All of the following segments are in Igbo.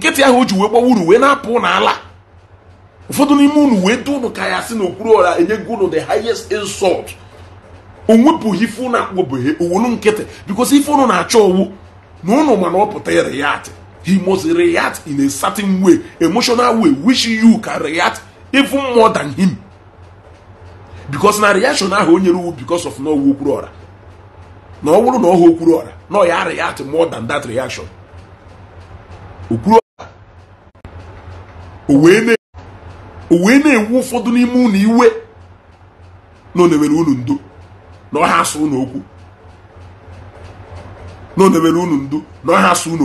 nkịtị ahụ o ji wee gbawa uru wee na-apụ n'ala ụfọdụ n'ime unu wee dị unu ka ya sị na okpuru ọra enyego unu the highest insult o wepụghị ife owolu nkịtị because ife unu na-achọ owu na unu mana ọ pụta react he must react in a certain way emotional way which you can react even more than him because na reaction ahụ o nyere uwu because of na owu okpuru ọra na ọ bụrụ na ọ okpuru ọra na ọ ya react more than that reaction okpuru o wee na ewu ụfọdụ n'ime unu iwe na onewere unu ndo na ọha asụ unu okwu na onewere asụ ụlọ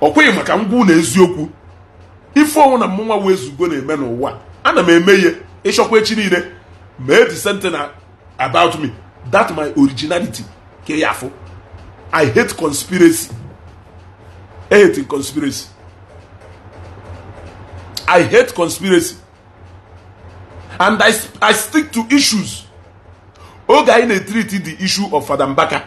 okwu ọ maka ngwa unu eziokwu ife ọnwụ na mmụnwa wee zugo na-eme n'ụwa ana m eme ihe ịchọkwa echi niile ma the same about me that my originality ke ya afọ i hate conspiracy I hate conspiracy I hate conspiracy and I, I stick to issues oge anyị na-etriti the issue of Fada Mbaka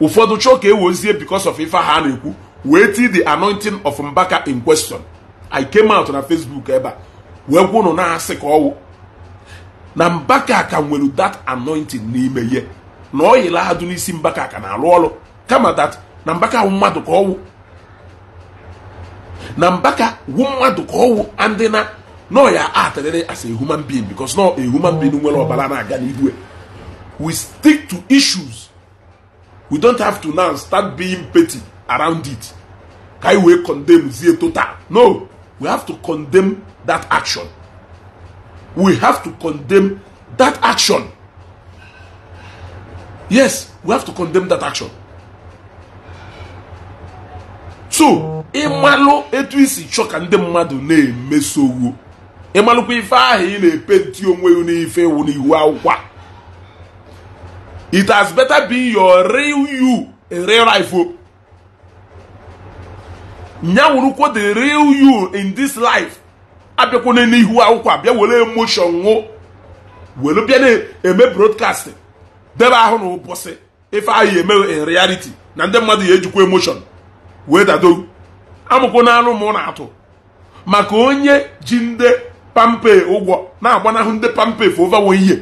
ụfọdụ chọọ ka wozie because of ife ha na-ekwu wee tii the anointing of Mbaka in question I came out na Facebook ebe a wee gwunu na-asị ka ọwụ na Mbaka ka nwere that anointing n'ime ihe na ọ yila ha isi n'isi Mbaka ka na arụ ọrụ kama that na Mbaka ahụ mmadụ ka ọwụ na mbaka wu mmadụ ka ọwụ ndị na nọ ya atadere as a human being because nọ a human being nwere ọbara na-aga n'ihu e. we stick to issues we don't have to now start being petty around it ka anyị wee condemn zie total no we have to condemn that action we have to condemn that action yes we have to condemn that action so ịmalụ etu isi chọ ka ndị mmadụ na-emesowo ịmalụkwa ife ahụ ị na-epenti onwe gị n'ife iwu n'iwu akwụkwọ it has better be your real you a real life o the real you in this life abịakwana n'ihu akwụkwọ abịa were emotion ṅụ were bịa na-eme brodkast debe ahụ na ụbọsị ife ahụ eme in reality na ndị mmadụ ya ejikwa emotion wee dado amụkwo n'alụ mụ na-atụ maka onye ji ndị pampe ụgwọ na-agbanahụ ndị pampe fova wee ihe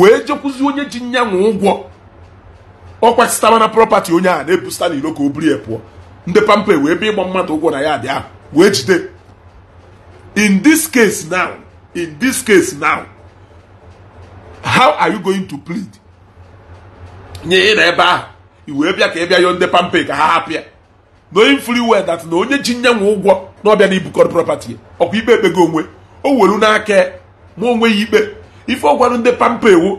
wee jekwuzi onye ji nyanwụ ụgwọ ọ kwasịtara na prọpati onye a na-ebusita n'iro ka o buru ya pụọ ndị pampe wee bịa ịgba mmadụ ụgwọ na ya dị ahụ wee jide in this case now in this case now how are you going to plead nye ị na ebe ahụ i wee bịa ka ị bịa yọọ ndị pampe ka ha hapịa na onye fri wel dat na onye ji nyenwe ụgwọ na ọbịa na ibukọrọ prọpati ọkwa ikpe ekpego onwe o welu n'aka ma onwe ya ikpe ife ọ gwarụ ndị pampa ewu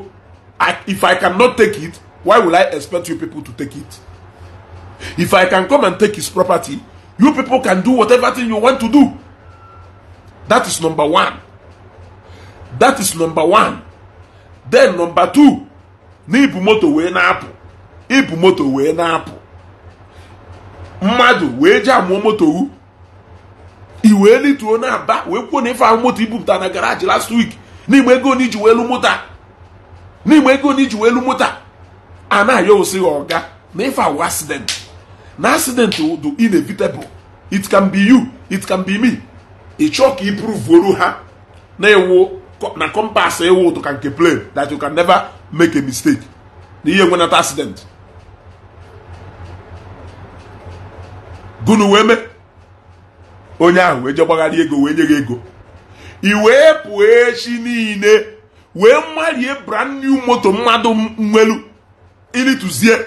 if i can not take it why will i expect you people to take it if i can come and take his property you people can do whatever thing you want to do that is number one that is number one then number two na ibu moto wee na-apụ ibu moto wee na-apụ mmadụ wee ji amụọ moto wu i wee lituo na aba wee kwuo na ife ahụ moto ibupụta na garaji last week n'igbe ego na iji wee lu moto n'igbe ego na iji wee lu moto a na-ayọ na ife awụ accident na accident dị inevitable it can be you it can be me ị chọọ ka ipruvuru ha na-ewu na kọmpas ewu ụtụ nke plane that you can never make a mistake na ihe nwenata accident unu wee mee onye ahụ wee jegbagharị ego wee nye gị ego ị wee pụọ echi niile wee marie brand new moto mmadụ nwelu ilituzie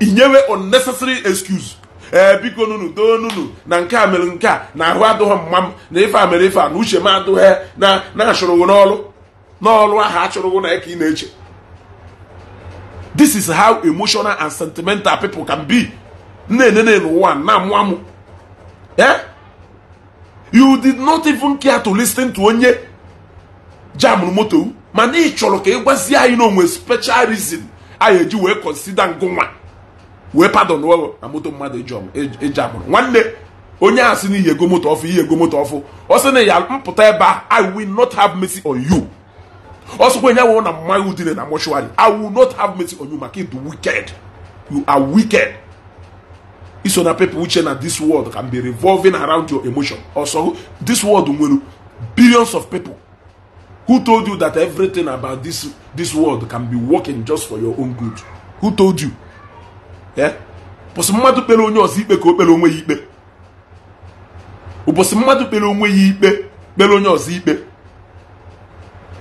inyewe unnecessary excuse ee biko nunu doo nunu na nke a mere nke a na ahụ adụghị mma m na ife a mere ife a na uche m adụghị na na-achụrụghị n'ọrụ n'ọrụ ahụ achụrụghị na ka ị na-eche this is how emotional and sentimental people can be. na-enene n'ụwa na-amụ amụ you did not even care to lis ten to onye jamụrụ moto mana ị chọrọ ka ị gwazie anyị na onwe special reason anyị eji wee consider ngụnwa wee pardon wee na moto mmadụ eji amụrụ nwanne onye a si na ihe ego moto ọfụ ihe ego moto ọfụ ọ sị na ya mpụta ebe a i will not have mercy on you ọ sịkwa enye wụ na mmaghị udine na mọshụwarị i will not have mercy on you maka ịdụ wicked you are wicked iso na people uche na this world can be revolving around your emotion also this world nwere billions of people who told you that everything about this this world can be working just for your own good who told you eh ụbọchị mmadụ kpere onye ọzọ ikpe ka o kpere onwe ya ikpe ụbọchị mmadụ kpere onwe ya ikpe kpere onye ọzọ ikpe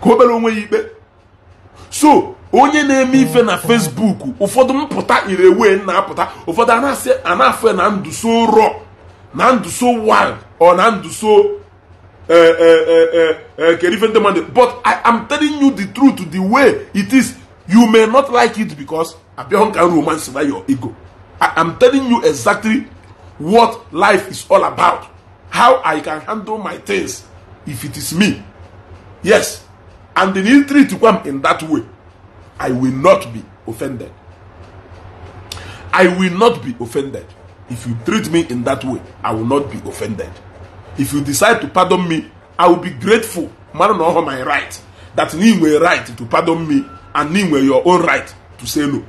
ka o kpere onwe ya ikpe so onye na-eme ife na Facebook ụfọdụ mpụta irewe na-apụta ụfọdụ anasị anafe na ndụ so rọ na ndụ so wild ọ na ndụ so e, e, e, kere ife ndị mmadụ but I am telling you the truth the way it is you may not like it because abịahụ nka romance na your ego I am telling you exactly what life is all about how I can handle my things if it is me yes and in history treat come in that way, I will not be offended. I will not be offended. If you treat me in that way, I will not be offended. If you decide to pardon me, I will be grateful. Man, know my right. That you were right to pardon me, and you were your own right to say no.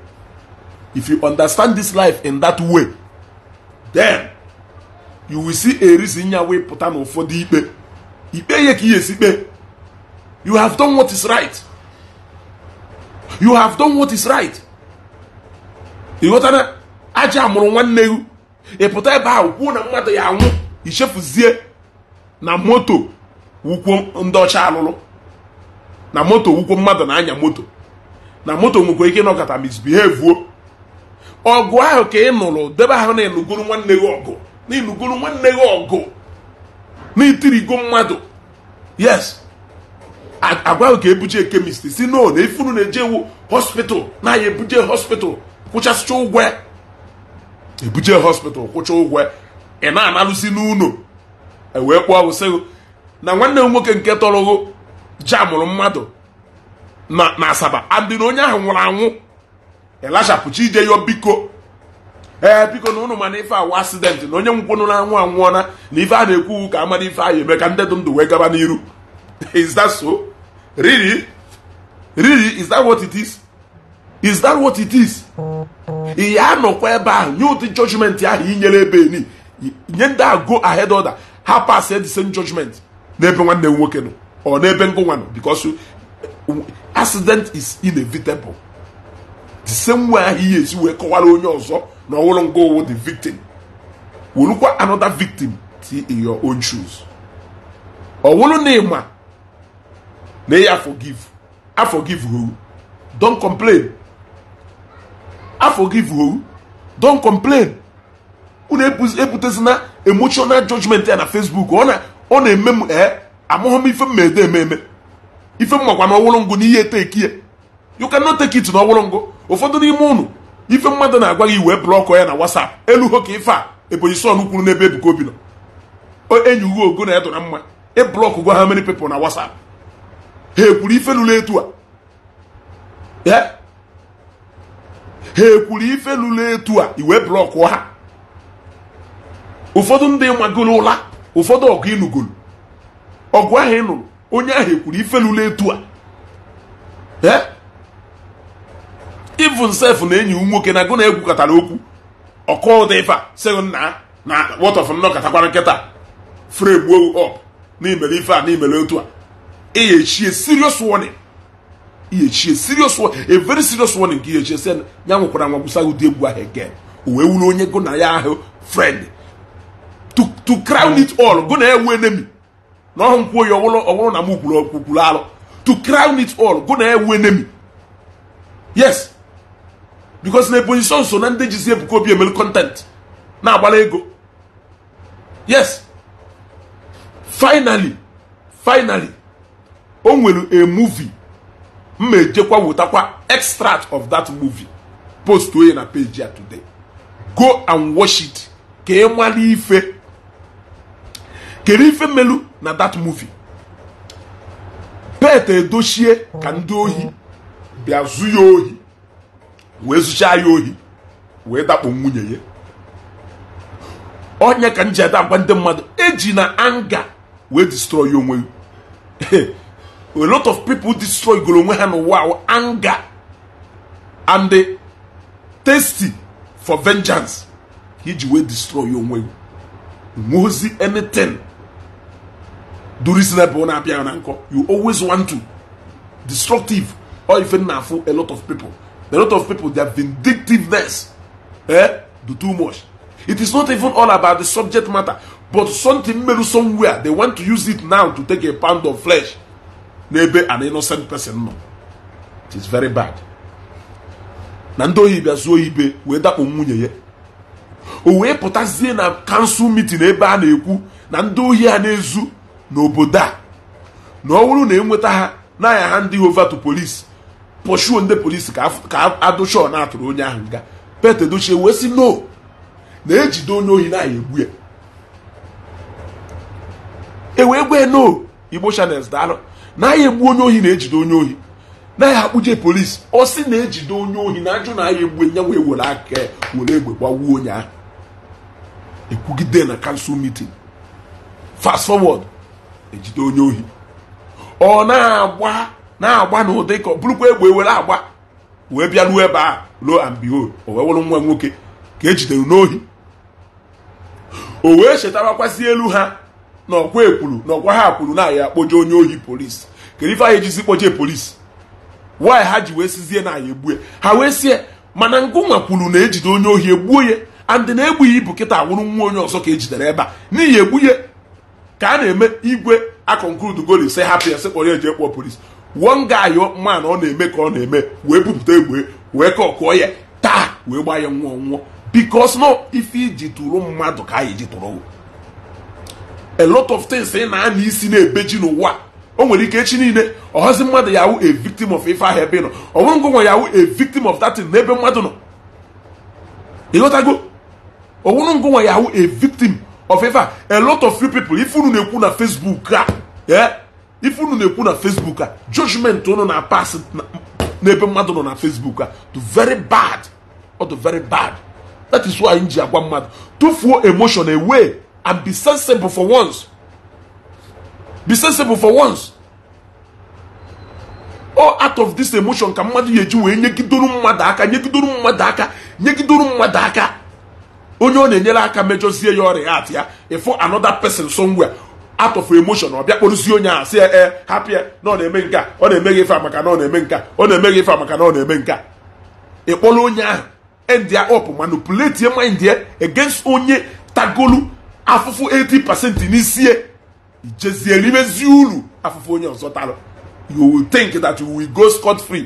If you understand this life in that way, then you will see a reason your way put on for the ipe. Ipe ye ki ye si You have done what is right. You have done what is right. Ị ghọtara aja amụrụ nwanne gị ị pụta ebe ahụ kwuo na mmadụ ya anwụ ichefuzie na moto wukwo ndị ọcha alụlụ na moto wukwo mmadụ na-anya moto na moto nwekwa ike ịnọkọta misbehave ọgụ ahụ ka ị nụrụ debe ahụ na ịnụgoro nwanne gị ọgụ na ịnụgoro nwanne gị ọgụ na itirigo mmadụ yes agwaghị ka ebuje kemist si no na ifunu na-eje ewu hospital na ya ebuje hospital kwụchasịcha ụgwọ ebuje hospital kwụcha ụgwọ ị na-analụsi n'ụlọ ewee kpụọ wụsịghị na nwanne m nwoke nke tọrọghụ ji amụrụ mmadụ na asaba andị na onye ahụ nwụrụ anwụ ịlachapụchi ije yọ biko ee biko na ụnụ mana ife awụ asidenti na onye ngwụnụ na anwụ anwụọna na ife a na-ekwu ka amara ife ahụ eme ka ndị dụ ndụ wee gaba n'iru is that so? Really? Really? Is that what it is? Is that what it is? Ị ya nọkwa ebe ahụ nye ụdị judgment ahụ i nyere ebe ni nye ndị a go ahead order ha pass the same judgment n'ebe nwanne m nwoke nọ ọ n'ebe ngụ nwa nọ because accident is inevitable the same way ahụ ihe esi wee kọwara onye ọzọ na ọwụrụ ngụ owu the victim werukwa another victim ti in your own shoes ọ wụrụ na ịma May I forgive. I forgive you. complain. I forgive you. complain. Unu ebutezina emotional judgment ya na Facebook ọ na-eme m ee eh, amụghọ m ife m ede eme eme ife m makwa na ọwụrụ ngụ ihe tekie you cannot take it na ọwụrụ ngụ ụfọdụ n'ime ụnụ ife mmadụ na-agwa gị wee blọkọ ya na WhatsApp elu ho ka ife a ebonyi son kwuru n'ebe Ebuka Obi nọ enyi ugo ogo na ya dụra mma ịblọkụ e gwa ha many people na WhatsApp ha ekwuru ife lụrụ etu a ha ekwuru ife lụrụ etu a iwe blọkụ ha ụfọdụ ndị magoro ụla ụfọdụ ọgụ ịnụgoro ọgụ ahụ ị nụrụ onye ahụ ekwuru ife lụrụ etu a ee even na enyi nwoke na agụ na egwukọtara okwu ọkụ ụda ife a sị nna na wọtọf nnọkọtakwara nkịta fregbuo op n'imere ife a n'imere otu a ɛyɛkyie serious warning yɛkyie serious warning a very serious warning kì yɛkyie sɛ nyankokoraa nwakusa yóò di egu ahɛ gɛ òwe wúlò onye go na ya ahɛ friend to to crown it all go na yà ewu enemy na ɔhun kwo yɛ ɔwɔlɔ ɔwɔlɔ na mu kulu kulu alɔ to crown it all go na yà ewu enemy yes because na eposition so na ndị ji si ebuka obi emelu content na agbala ego yes finally finally. o nwere a movie m ejekwa wetakwa extract of that movie post oye na page ya today go and watch it ka ị mara ife kere ife melu na that movie pet edochie ka ndị ohi bịa ya ohi wee zụchaa ya ohi wee dakpo nwunye ya onye ka m ji ada agwa ndị mmadụ eji na anga wee destroy onwe a lot of people destroy goro onwe ha n'ụwa anger and the tasty for vengeance ka iji wee destroy onwe nwozi anything durisnebụ na-abịa na nkọ you always want to destructive or even na afụ a lot of people a lot of people their vindictiveness eh, do too much it is not even all about the subject matter but something meru somewhere they want to use it now to take a pound of flesh n'ebe an innocent person nọ it is very bad na ndị ohi bịa zuo ibe wee dakpo nwunye ya o wee pụtazie na kansụl meeting ebe a na-ekwu na ndị ohi a na-ezu n'obodo a na ọ bụrụ na enweta ha n'anya ha ndị to polisi pọshuo ndị polisi ka adụchọ na-atụrụ onye ahụ nga pete dochie wee sị no na-ejide onye ohi na-anya egbu ya e wee gwee no igbo channels daalụ naghị egbu onye ohi na-ejide onye ohi naghị akpụje polisi ọ sị na-ejide onye ohi na ajụ na agha egbu nya nwe were aka were egbe gbagbuo onye ahụ ekwugide na kansụl mitin fast forward ejide onye ohi ọ na-agba na-agba na ka ọ bụrụkwa egbe were agba wee bịa ruo ebe a ruo and o wee nwa nwoke ka ejidere n'ohi o wee chetarakwazi elu ha na ọkwa ekwuru na ọkwa ha kwuru na anyị akpoje onye ohi polisi kedu ife anyị ejizi kpoje polisi wanyị ha ji wee sizie na anyị egbue ha wee sie mana ngụnwa kwuru na ejide onye ohi egbuo ya andị na-egbughị ibu kịta awụrụ nwa onye ọzọ ka ejidere ebe a n'ihi egbughe ka a na-eme igwe akọnkrud goli se hapụ ya sekpọrọ eji ekpọ polisi wuo nga ayọ mmanụ ọ na-eme ka ọ na-eme wee bupụta egbe wee kọkụọ ya taa wee gbaa ya nwụọ nwụọ bikos nọ ife iji tụrụ mmadụ ka anyị ji tụrụ a lot of things ị na-ana isi na-ebeji n'ụwa o nwere ike echi niile ọhazi mmadụ ya a victim of ife ahụ ebe ị nọ ọnwụngụ nwa ya a victim of that n'ebe mmadụ nọ ịghọtago ọnwụngụ nwa ya a victim of ife a a lot of people ife unu na-ekwu na Facebook a ife unu na-ekwu na Facebook a judgment unu na pass n'ebe mmadụ nọ na Facebook a to very bad or the very bad that is why anyị ji agwa mmadụ tụfuo emotion away and be sensible for once. Be sensible for once. All out of this emotion ka mmadụ ya eji wee nyegidoro mmadụ aka nyegidoro mmadụ aka nyegidoro mmadụ aka onye ọ na-enyere aka mejọzie ya ọrịa at ya ifo another person somewhere out of emotion ọ bịa onye a si ee hapụ na ọ na-eme nke a ọ na-eme gị ife a maka na ọ na-eme nke a ọ na-eme gị ife maka na ọ na-eme nke a ịkpọrọ onye ahụ end up manipulate mind ya against onye tagolu afụfụ 80% n'isie ijezie rimezi uru afụfụ onye ọzọ tara you will think that you will go scot free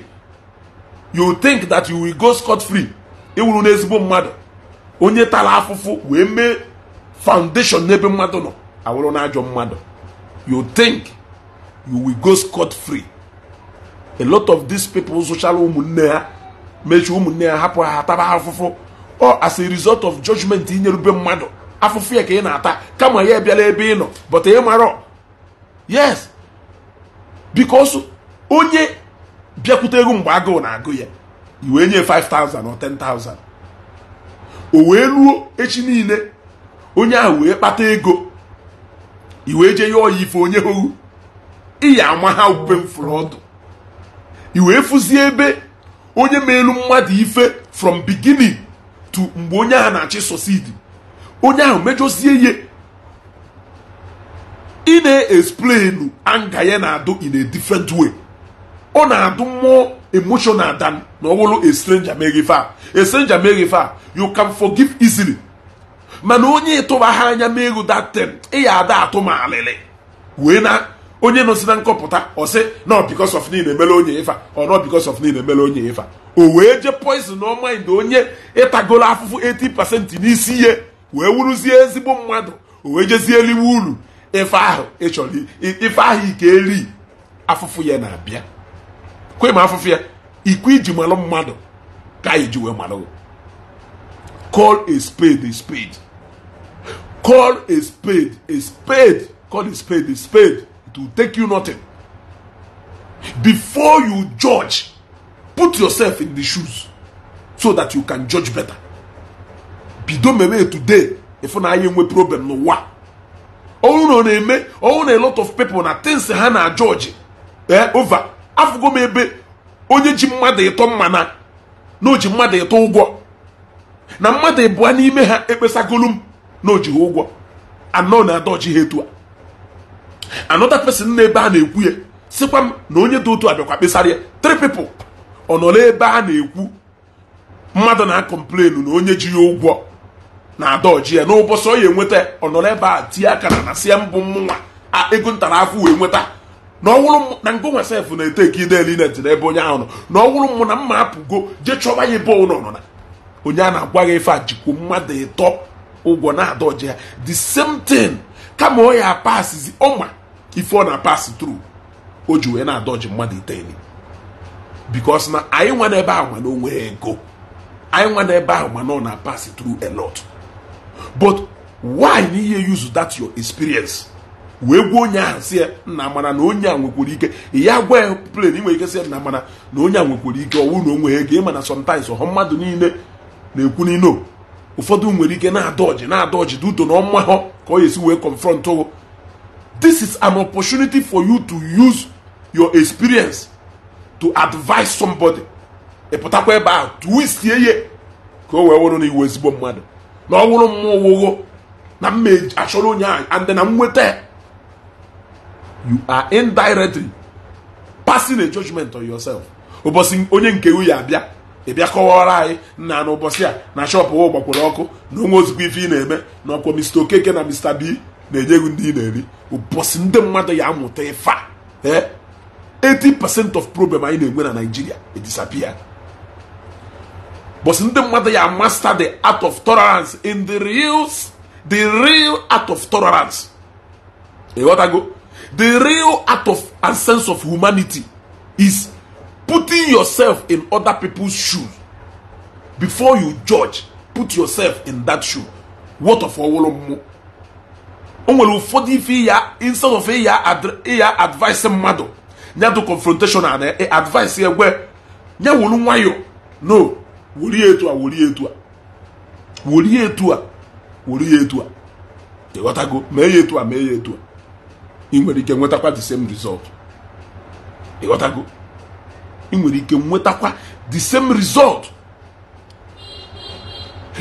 you will think that you will go scot free ịwụrụ n'ezigbo mmadụ onye tara afụfụ wee mee foundation n'ebe mmadụ nọ awụrụ n'ajọ mmadụ you think you will go scot free a lot of these people zụchara ụmụnne ha mechie ụmụnne ha hapụ ha taba afụfụ or as a result of judgment inyerube mmadụ afụfụ ya ka ị na-ata kama ya bịala ebe ị nọ bọta ị marọ yes bikos onye bịakwute ego mgbe agụụ na-agụ ya iwee nye 5000 or 10000 o wee ruo echi niile onye ahụ wee kpata ego iwee jee ọ ya ife onye ohu ya ama ha ube m ọdụ iwee fụzie ebe onye ma elu mmadụ ife from beginning to mgbe onye ahụ na-achị sosidi onye ahụ mejọsie ihe ị na-explain anga ya na-adụ in a different way ọ na-adụ mmụọ emotional dan na ọ bụrụ a stranger mere ife a a stranger mere ife a you can forgive easily mana onye ịtụba ha anya meru datin ị ya ada atụ ma alịlị wee na onye nọsi na nkọpụta ọsị na because of niile mere onye ife ọ na because of niile mere onye ife o wee je poison ọma ndị onye ịtagolo afụfụ 80 pasenti n'isi ihe wee wuruzie ezigbo mmadụ o wee jezie eliwe uru ife ahụ ịchọrọ ife ahụ ike eri afụfụ ya na-abịa kwe ma afụfụ ya ikwe iji malụ mmadụ ka iji wee malụ call a spade a spade call a spade a spade call a spade a spade it will take you nothing before you judge put yourself in the shoes so that you can judge better bido mewe today ịfụ na anyị enwe problem n'ụwa ọhụrụ na ọ na-eme ọhụrụ na a lot of people na things ha na jọji ee ova afụgo m ebe onye ji mmadụ ịtọ mmana na o ji mmadụ ịtọ ụgwọ na mmadụ ịbụa n'ime ha ekpesagolu m na o ji ha ụgwọ anọ na adọji ha etu a another na-ebe a na-ekwu ya sikwa m na onye dị otu a bịakwa kpesara ya ọ nọ ebe a na-ekwu mmadụ na-akọmplenu na onye ji ya ụgwọ na adaoji ya n'ụbọchị ọ ya enweta ọnọrọ ebe a tie aka na na sie mbụ mụnwa ego ntara afọ wee nweta na ọwụrụ na ngo nwe sef na-ete ka eli na ebe onye ahụ nọ na ọwụrụ mụ na mma apụgo je chọba ya ebe ụlọ nọ na onye a na-agwa gị ife a jikwa mmadụ ịtọ ụgwọ na adaoji ya the same thing kama ọ ya pasizi ọma ife ọ na-apasị tru o ji wee na-adọji mmadụ itegheli bikos na anyị nwa n'ebe ahụ mana o ego anyị nwa n'ebe ahụ mana ọ na-apasị tru a lot but why na ihe use that your experience wee gwa onye ahụ si nna mana na onye a nwekwara ike ya gwa ya plen nwere ike si nna mana na onye a nwekwara ike ọ wụrụ na onwe ego ịma na sometimes ọha mmadụ niile na-ekwu n'ino ụfọdụ nwere ike na-ada na-ada ọjị dị uto na ọma ha ka ọ esi wee confront o this is an opportunity for you to use your experience to advise somebody ịpụtakwa ebe ahụ sie ye ka o wee wụrụ na iwu ezigbo mmadụ na ọ wụrụ mma owuwo na mma e achọrọ onye and na nweta you are indirectly passing a judgment on yourself ụbọchị onye nke ya abịa ịbịa kọwara anyị nna na ụbọchị a na shop ụwa gbakwere ọkụ na onwe ozugbo ife ị na-eme na ọkwa Mr. Okeke na Mr. B na-enye gị ndị ị na-eri ụbọchị ndị mmadụ ya amụta ịfa. a 80% eh? of problem anyị na-enwe na Nigeria e disappear but ndị mmadụ ya master the art of tolerance in the real the real art of tolerance ịghọtago the real art of and sense of humanity is putting yourself in other people's shoes before you judge put yourself in that shoe what ọwụrụ mmụọ o nwere ụfọdụ ife ya instead of ịya advice mmadụ nyadụ confrontation na eh, advice egwe nyawụrụ nwayọ no were ya etu a were ya etu a were ya etu a were ya etu a ịghọtago mee ya etu a mee ya etu a ị nwere ike nwetakwa the same result ịghọtago ị nwere ike nwetakwa the same result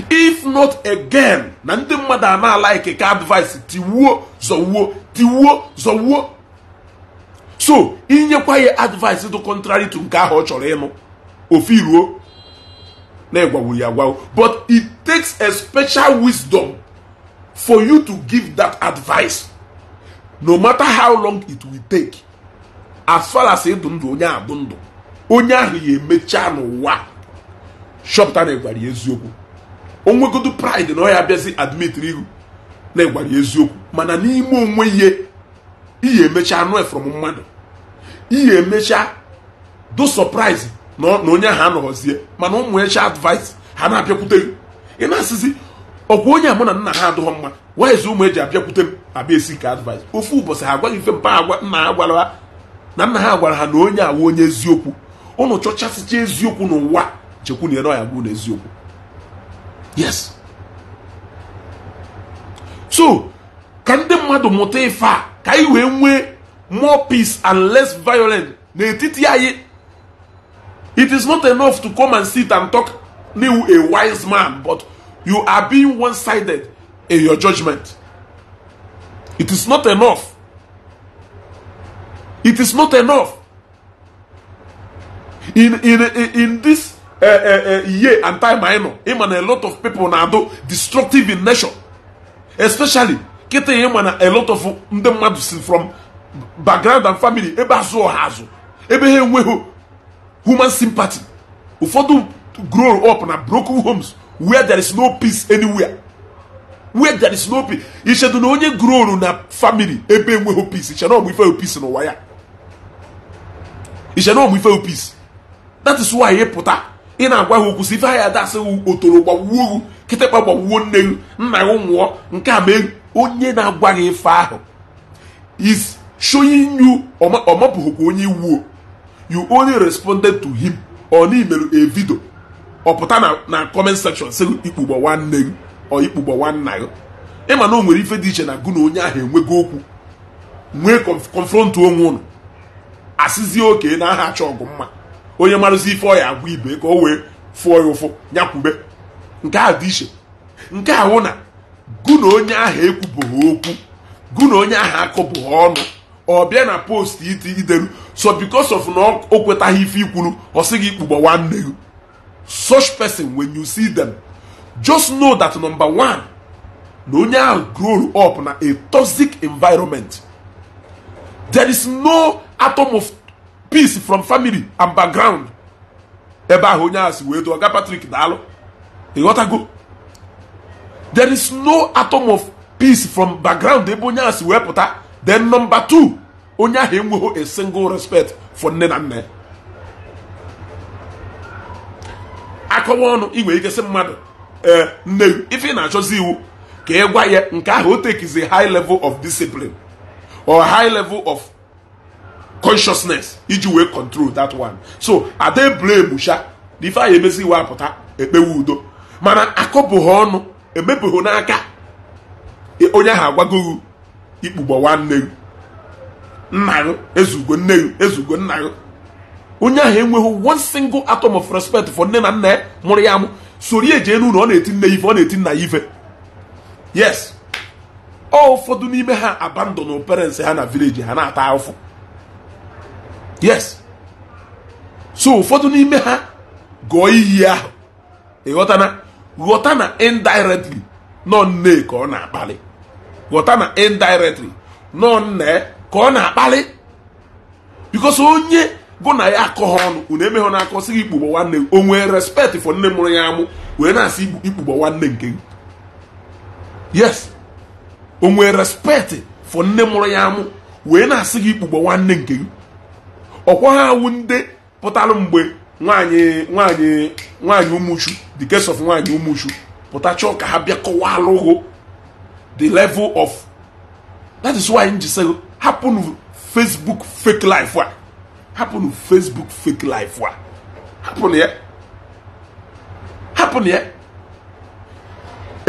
if not again na ndị mmadụ a na ka advice tiwuo zọwuo tiwuo zọwuo so inyekwa ya advice dị contrary to nke ahụ ọ chọrọ ịnụ ofu iruo na-egwawuru ya agwawo but it takes a special wisdom for you to give that advice no matter how long it will take as far as ịdụ ndụ onye abụ ndụ onye ahụ ya emechaa n'ụwa shọpụta na-egwara ya eziokwu onwegodu pride na ọ ya abịazi admitri ihu na-egwara ya eziokwu mana n'ime onwe ihe ihe emecha anụ efrom mmadụ ihe emechaa do surprise na onye ha nọrọzie mana ụmụ echi advice ha na-abịakwute gị ị na-asịzi ọkwa onye a mụ na nna ha adụghọ mma waiz ụmụ eji abịakwute m abịa esi ka advice ofu ụbọchị ha agwaghị mfe mpa agwa nna ha gwara ha na nna ha gwara ha na onye awa onye eziokwu ụnụ chọchasịcha eziokwu n'ụwa chekwu na ere ya bụ na eziokwu yes so ka ndị mmadụ mụta ife a ka anyị wee nwee more peace and less violence n'etiti anyị It is not enough to come and sit and talk new a wise man, but you are being one sided in your judgment. It is not enough. It is not enough. In in in this uh, uh, uh, year and time I know, him and a lot of people now do destructive in nature, especially getting him and a lot of them from background and family. Ebe azụ ọha ha human sympathy ụfọdụ grow up na broken homes where there is no peace anywhere where there is no peace ichedu na onye grow na family ebe enweghị peace iche na ọmụ ife peace n'ụwa ya iche na ọmụ ife peace that is why ị pụta ị na-agwa ha okwu si ife ha ya dasị otoro gbawuo kịtịkpa gbawuo nne gị nna gị nwụọ nke a mee onye na-agwa gị ife ahụ is showing you ọ mapụghịkwa onye iwuo you only responded to him or na a video ọpụta na na comment section sị ikpugbo nwanne gị ọ ikpugbo nwanna gị ịma na o nwere ife dị iche na gụ na onye ahụ enwego okwu nwee confront onwe ụnụ asịzie oke na aha achọ ọgụ mma onye marụzi ife ọ agwa ibe ka o wee fụọ ya ụfụ nyakwube nke a dị iche nke a hụ na gụ na onye ahụ ekwubụghị okwu gụ na onye ahụ akụbụghị ọnụ ọbịa na post iti ideru so because of na o kwetaghị ife ikwuru ọ sị gị kpụgba nwanne gị such person when you see them just know that number one na onye ahụ grow up na a toxic environment there is no atom of peace from family and background ebe ahụ onye ahụ si wee dụọ ga patrik daalụ ịghọtago e there is no atom of peace from background ebe onye ahụ si wee pụta then nọmba two onye ahụ enweghị a single respect for nne na nne akọwa ọnụ ị ikesị mmadụ ee nne ife ị na-achọzi iwu ka ị gwa ya nke ahụ o tekizi high level of discipline or high level of consciousness iji wee control that one so ada blame sha na ife anyị emezi iwe apụta ekpewe udo mana akọbụghị ọnụ n'aka onye ahụ agwagoghị ikpugbo nwanne gị nna gị ezugo nne gị ezugo nna gị onye ahụ enweghị one single atom of respect for nne na nna ya mụrụ ya amụ soro ya elu n'ụlọ ọ na-eti nne ife ọ na-eti nna ya ife yes ọ ụfọdụ n'ime ha abandon parents ha na village ha na-ata afọ yes so ụfọdụ n'ime ha gụọ iyi ahụ ịghọta na ghọta na indirectly nọ nne ka ọ na-akpali ghọta na indirectly nọ nne ka ọ na-akpali bikos onye bụ na ya akọ ọnụ unu emeghe na akọ sịghị gị ikpugbo nwanne o nwee respect for nne mụrụ ya amụ wee na-asị ikpugbo nwanne nke gị yes o nwee respect for nne mụrụ ya amụ wee na-asị gị ikpugbo nwanne nke gị ọkwa ha awụ ndị pụtara mgbe nwanyị nwanyị nwaanyị ụmụchu the case of nwaanyị ụmụchu pụta chọọ ka ha bịa alụghụ the level of that is why nji say hapụnụ facebook fake life wa happen facebook fake life wa happen ya happen here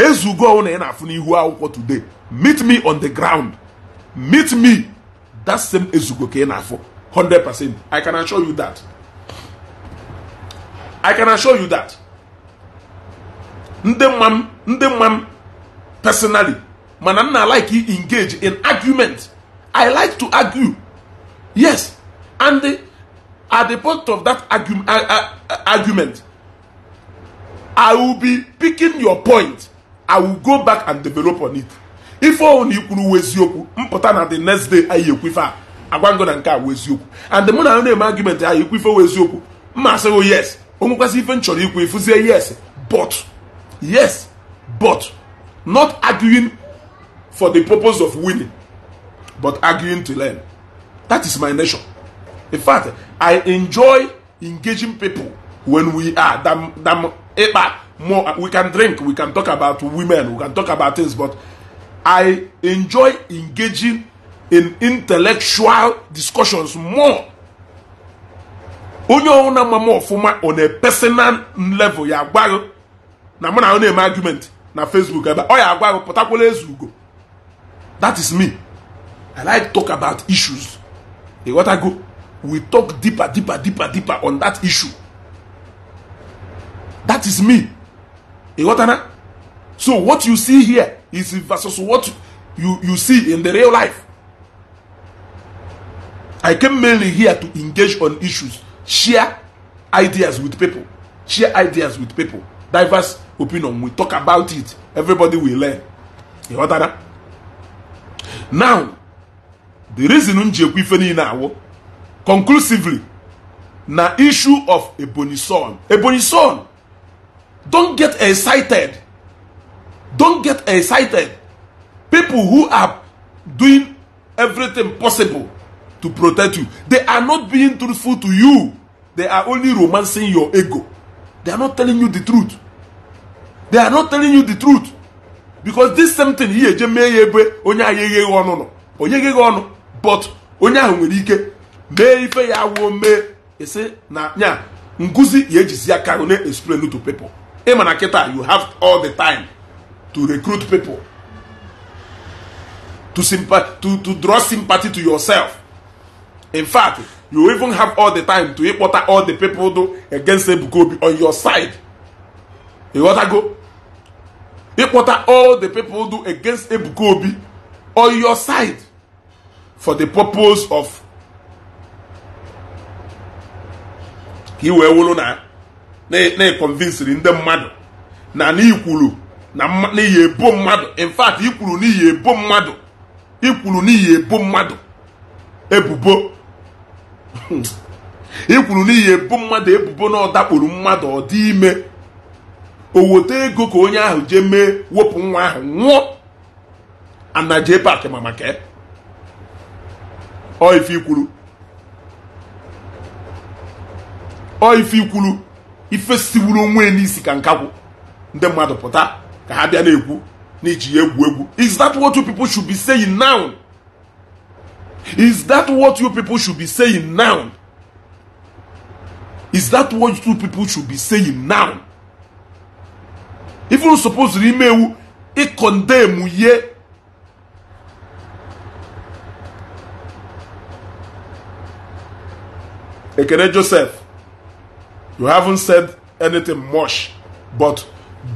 ezugo ọhụrụ na ị na-afụ n'ihu akwụkwọ today meet me on the ground meet me that same ezugo ka ị na-afụ 100% i can assure you that i can assure you that ndị mma m ndị mma m personally mana m na like engage in argument i like to argue yes and the, at the point of that argu uh, uh, argument i will be picking your point i will go back and develop on it ife ọhụrụ na ikwuru uwe eziokwu mpụta na the next day anyị ekwife a agwango na nke a wee eziokwu and mụ na na-eme argument anyị ekwife wee eziokwu mma asịghị oh, yes onwekwasị ife m chọrọ ikwu ifuzie yes but yes but not arguing for the purpose of winning, but arguing to learn. That is my nature. In fact, I enjoy engaging people when we are dam ikpa eh, more. We can drink, we can talk about women, we can talk about things, but I enjoy engaging in intellectual discussions more. onye ọwụna mama ọfụma on a personal level ya agwaghị na mụ na ọ na-eme argument na Facebook ebe ọ ya agwaghị pụtakwala ezu ugo that is me i like talk about issues e wata go we talk deeper deeper deeper deeper on that issue that is me e wata na so what you see here is versus what you you see in the real life i came mainly here to engage on issues share ideas with people share ideas with people diverse opinion we talk about it everybody will learn you heard that now the reason m ji ekwu ife niile awụ conclusively na issue of ebonyi son ebonyi son don get excited don get excited people who are doing everything possible to protect you they are not being truthful to you they are only romancing your ego they are not telling you the truth they are not telling you the truth because this same thing ihe eje mee ya ebe onye ahụ egheghị ọnụ nọ onye egheghị ọnụ but onye ahụ nwere ike mee ife ya wuo mee ese na nya nguzi ya ejizi ya ka na explain to people ịma na kịta you have all the time to recruit people to, to, to draw sympathy to yourself in fact you even have all the time to ịkpọta all the people do against Ebuka Obi on your side ịghọtago ịkpọta all the people do against ebuka obi on your side for the purpose of ka i wee wụrụ na na-econvinsiri ndị mmadụ na n'ikwuru na n'iyi ebo mmadụ in fact ikwuru n'iyi ebo mmadụ ikwuru n'iyi ebo mmadụ ebubo ikwuru n'iyi ebo mmadụ ebubo na ọ dakpuru mmadụ ọ dị ime oweta ego ka onye ahụ jee mee wepụ nwa ahụ nwụọ ana pak paakị ma maka ọ ife ikwuru ife siwuru onwe n'isi ka nkakwụ ndị mmadụ pụta ka ha bịa na-ekwu iji ya egwu egwu is that what you people should be saying now is is that what you people should be saying now even ifuru suppose n'ime iwu ịkọndemụ ihe ekene joseph you haven't said anything much but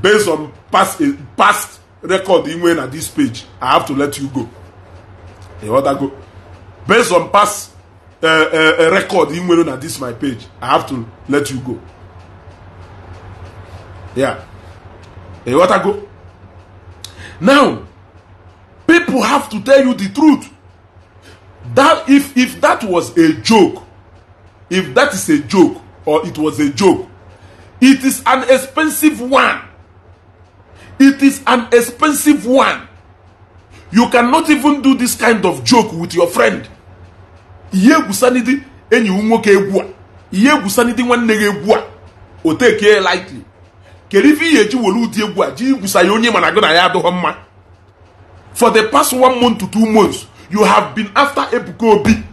based on past past record inwe na this page i have to let you go ịghọtago based on past uh, uh, record inwere na this my page i have to let you go yeah go now people have to tell you the truth that if if that was a joke if that is a joke or it was a joke it is an expensive one it is an expensive one you cannot even do this kind of joke with your friend ihe egwusanidi enyi nwoke egwu a ihe egwusanidi nwanne gị egwu a o tekee lightly kedu ife ihe eji were ụdị egwu a ji gwusa ya onye mana gị na ya adịghọ mma for the past one month to two months you have been after Ebuka Obi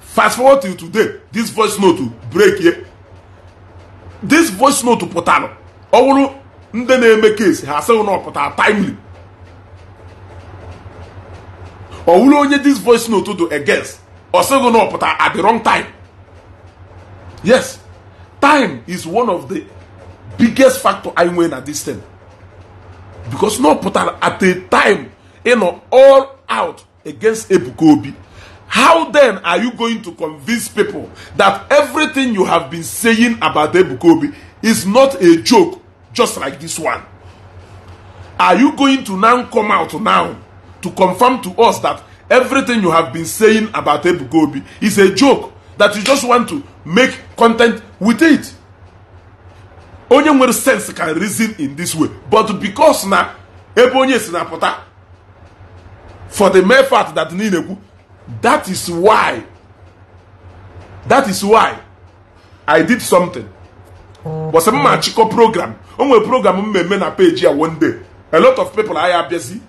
fast forward till today this voice note break ye this voice note pụtara ọ wụrụ ndị na-eme case ha asịghị na ọ pụtara timely ọ wụrụ onye this voice note do against ọ sịghị na ọ pụtara at the wrong time yes time is one of the biggest factor i nwere na this thing because no put at a time you know, all out against ebukobi how then are you going to convince people that everything you have been saying about ebukobi is not a joke just like this one are you going to now come out now to confirm to us that everything you have been saying about ebukobi is a joke that you just want to make content with it onye nwere sense can reason in this way but because na ebe onye si na-apụta for the mere fact that niile kwu that is why that is why i did something bọsị m ma program o nwere program m mmemme na peji ya one day a lot of people agha abịazi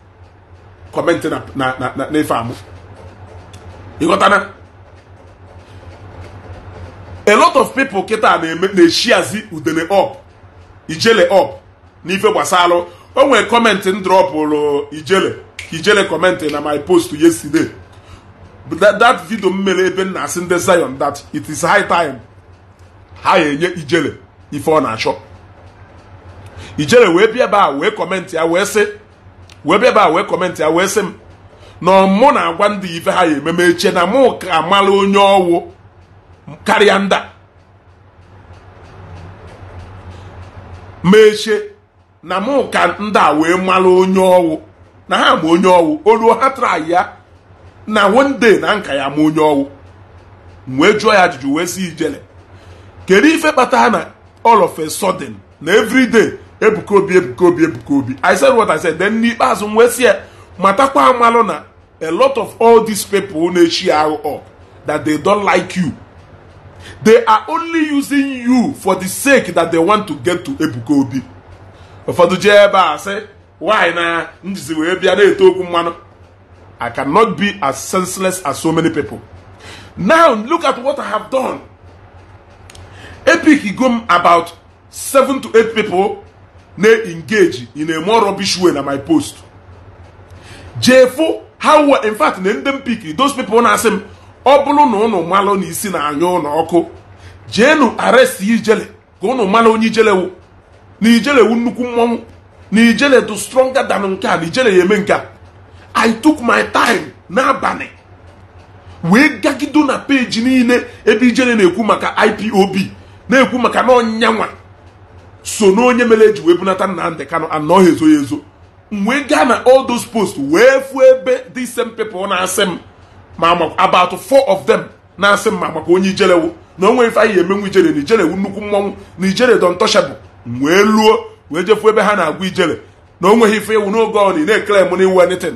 kọmentị na ife amụ ịghọtana a lot of people kịta na-eme na-echiazi udene up ijele up n'ife gbasalụ o nwere kọmentị m drọpụrụ ijele ijele kọmentị na my post yesterday that video m mere ebe m asị ndị Zion that it is high time ha enye ijele ife ọ na-achọ ijele wee bịa ebe a wee kọmentị ya wee sị wee bịa ebe a wee m na mụ na-agwa ndị ife ha ya ememe eche na mụ ka amala onye ọwụ karịa nda mechie na mụ ka ndị a wee mara onye ọwụ na ha ma onye ọwụ olu ha tara ya na wonde na nka ya ma onye ọwụ wee jụọ ya ajụjụ wee si ijele kedu ife kpatara na all of a sudden na everyday ebuka obi ebuka obi ebuka obi i said what i said then n'ikpeazụ m wee si ya matakwa amalụ na a lot of all these people na-echi arụ up that they don't like you They are only using you for the sake that they want to get to Ebuka Obi. Ụfọdụ jee ebe a sị, why na m jizi wee bịa na-eto okwu mmanụ. I cannot be as senseless as so many people. Now look at what I have done. Epic go about seven to eight people na-engage in a more rubbish way na my post. Jefu, how in fact na ndị m those people na-asị m ọ bụrụ na ụnụ malụ na isi na-anya ụlọ ọkụ jeenu aresti ijele ka ụnụ malụ onye ijelewu na ijelewu nnukwu mmọnwụ na ijele dị stronger than nke a na ijele ya eme nke a i took my time n'abalị wee gagido na peji niile ebe ijele na-ekwu maka ipob na-ekwu maka na ọnyanwa so na onye mere eji wee bunata Nnamdi kano anọghị ezo ya ezo m wee gaa na all those posts wee fuo ebe the same ọ na-asị m ma about four of them na-asị mma maka onye ijelewu na o ife anyị emenwu ijele na ijelewu nnukwu mmọnwụ na ijere dọntọshabụ wee luo wee jefu ebe ha na-agwa ijele na o nweghị ife iwu n'oge ọ na na-ekele m n'iwu anything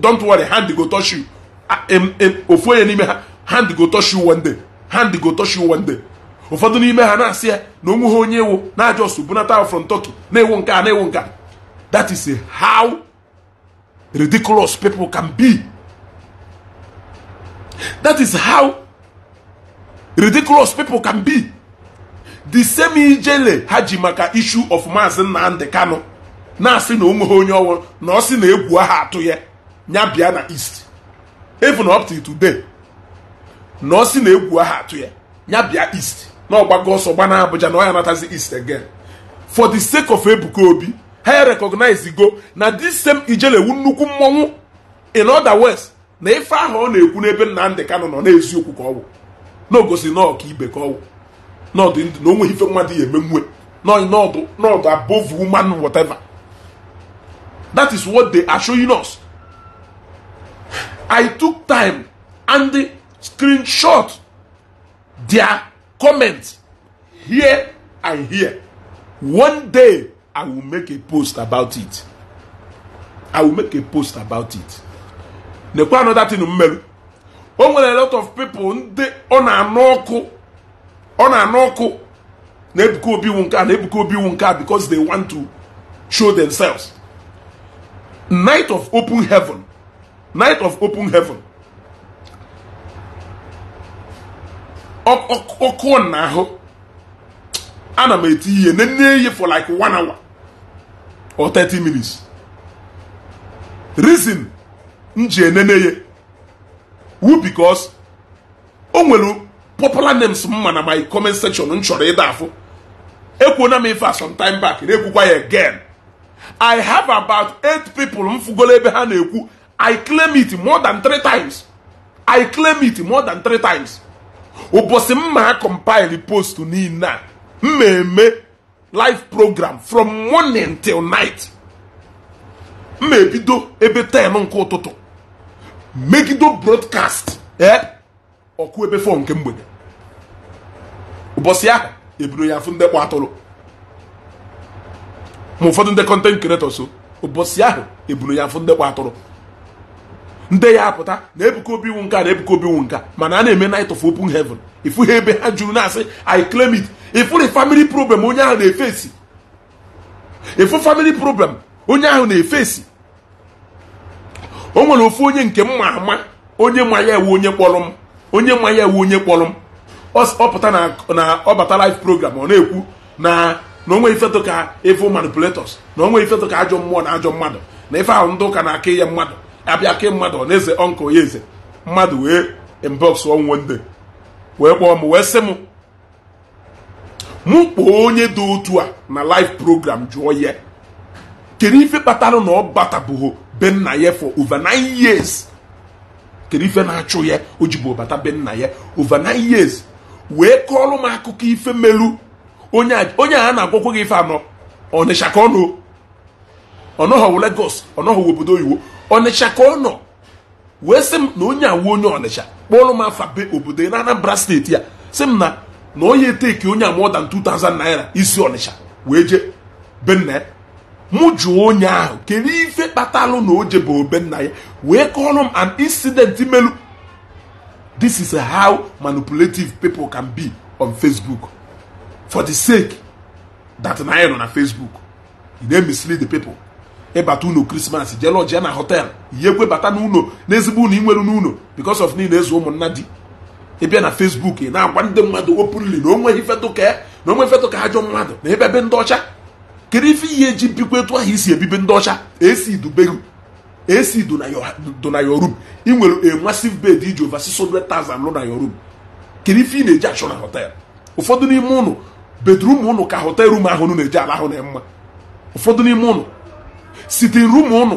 don't worry hand go touch you ofu onye n'ime ha hand go touch you one day hand go touch you one day ụfọdụ n'ime ha na-asị ya na onwe ha onye ewu na-ajọ bunata from Turkey na-ewu nke a na-ewu nke a that is how ridiculous people can be That is how ridiculous people can be. The same ijele ha ji maka issue of Maazị Nnamdi Kanu na-asị na onweghị onye ọnwụ na ọ sị na egwu aha atụ ya ya bịa na east even up to today na ọ sị na egwu aha atụ ya ya bịa east na gbagoo ọsọ gba na Abuja na ọ ya natazi east again for the sake of Ebuka Obi ha recognize go na this same ijele wu nnukwu mmọnwụ in other words na ife ahụ ọ na-ekwu n'ebe Nnamdị Kanụ nọ n'eziokwu ka ọ wụ na ogosi na ọka ibe ka ọ wụ na ndụ na onwe ife mmadụ ya eme mmụọ n'ọdụ above woman whatever that is what they are showing us I took time and screenshot their comments here and here one day I will make a post about it I will make a post about it nekwa another tin mmerụ o nwere a lot of people ndị ọ na-anụ ọkụ ọ na-anụ ọkụ na ebuka obi nke a na ebuka obi nke a because they want to show themselves night of open heaven night of open heaven ọkụ na ahụ ana m eti ihe nne ihe for like one hour or 30 minutes reason m ji enene wu because o nwere popular names mma na my comment section m chọrọ ịda afọ ekwuona m ife time back na-ekwukwa ya again i have about eight people m ebe ha na-ekwu i claim it more than three times i claim it more than three times ụbọchị m ma compile post niile a eme live program from morning till night m ebido ebe 10 nke ụtụtụ megido brodkast eh? ọkụ ebe fọ nke mgbede ụbọchị ahụ eburu ya afụ ndị kwa atụrụ ma ụfọdụ ndị kọntent ụbọchị ahụ eburu ya afụ ndị kwa atụrụ ndị ya apụta na ebuka obi iwu nka na ebuka obi iwu nka mana a na-eme night of open heaven ifu ha ebe ha juru na-asị i claim it ifụrụ family problem onye ahụ na-efesi ifu family problem onye ahụ na o nwere ofu onye nke mma ama onye ma ya ewu onye kpọrọ m onye ma ya ewu onye kpọrọ m ọpụta na ọbata program ọ na-ekwu na na onwe ifeto ka evo manipulators na onwe ifeto ka ajọ mmụọ na ajọ mmadụ na ife ahụ ndị ụka na-akị ya mmadụ abịa kee mmadụ na eze ọnkụ ya eze mmadụ wee inbox onwende wee kpọọ m wee sị m mụ kpọọ onye dị otu a na live program jụọ ya kedu ife kpatara na ọ batabụghị be nna ya for over nine years kedu ife na-achụ ya o jibu ọbata be nna ya over nine years wee kọọrọ m akụkọ ife melu onye a na agwọkwa gị ife anọ ọnịsha ka ọ nọ ọnọghọwụ Lagos ọnọghọwụ obodo oyibo ọnịsha ka ọ nọ wee sị m na onye awu onye ọnịsha kpọọrọ m afa be obodo na Anambra steeti ya sị m na na onye eteki onye a more 2000 naira isi ọnịsha wee jee be mụ jụọ onye ahụ kedu ife kpatalụ na o jebe obe nna ya wee kọrọ m an incident melu this is how manipulative people can be on facebook for the sake that na anyị nọ na facebook you na mislead the people ịbata unu krismas jelọji na họtel na bata n'ụlọ n'ezigbo ụlọ inwere n'ụlọ because of niile ezu ụmụnna di ịbịa na facebook ị na-agwa ndị mmadụ openly na onweghị fetụka na onwe fetụka ajọ mmadụ na ebe ebe ndị ọcha kedu ife ihe ji bikwa etu ahụ isi ebibe ndị ọcha esi do na your room ị nwere a massive bed iji over 600,000 lụ na your room kedu ife ị na-eji achọ na hotel ụfọdụ n'ime ụnụ bedrum ụnụ ka hotel room ahụ ụnụ na-eji ala ahụ na mma ụfọdụ n'ime ụnụ sitin rum ụnụ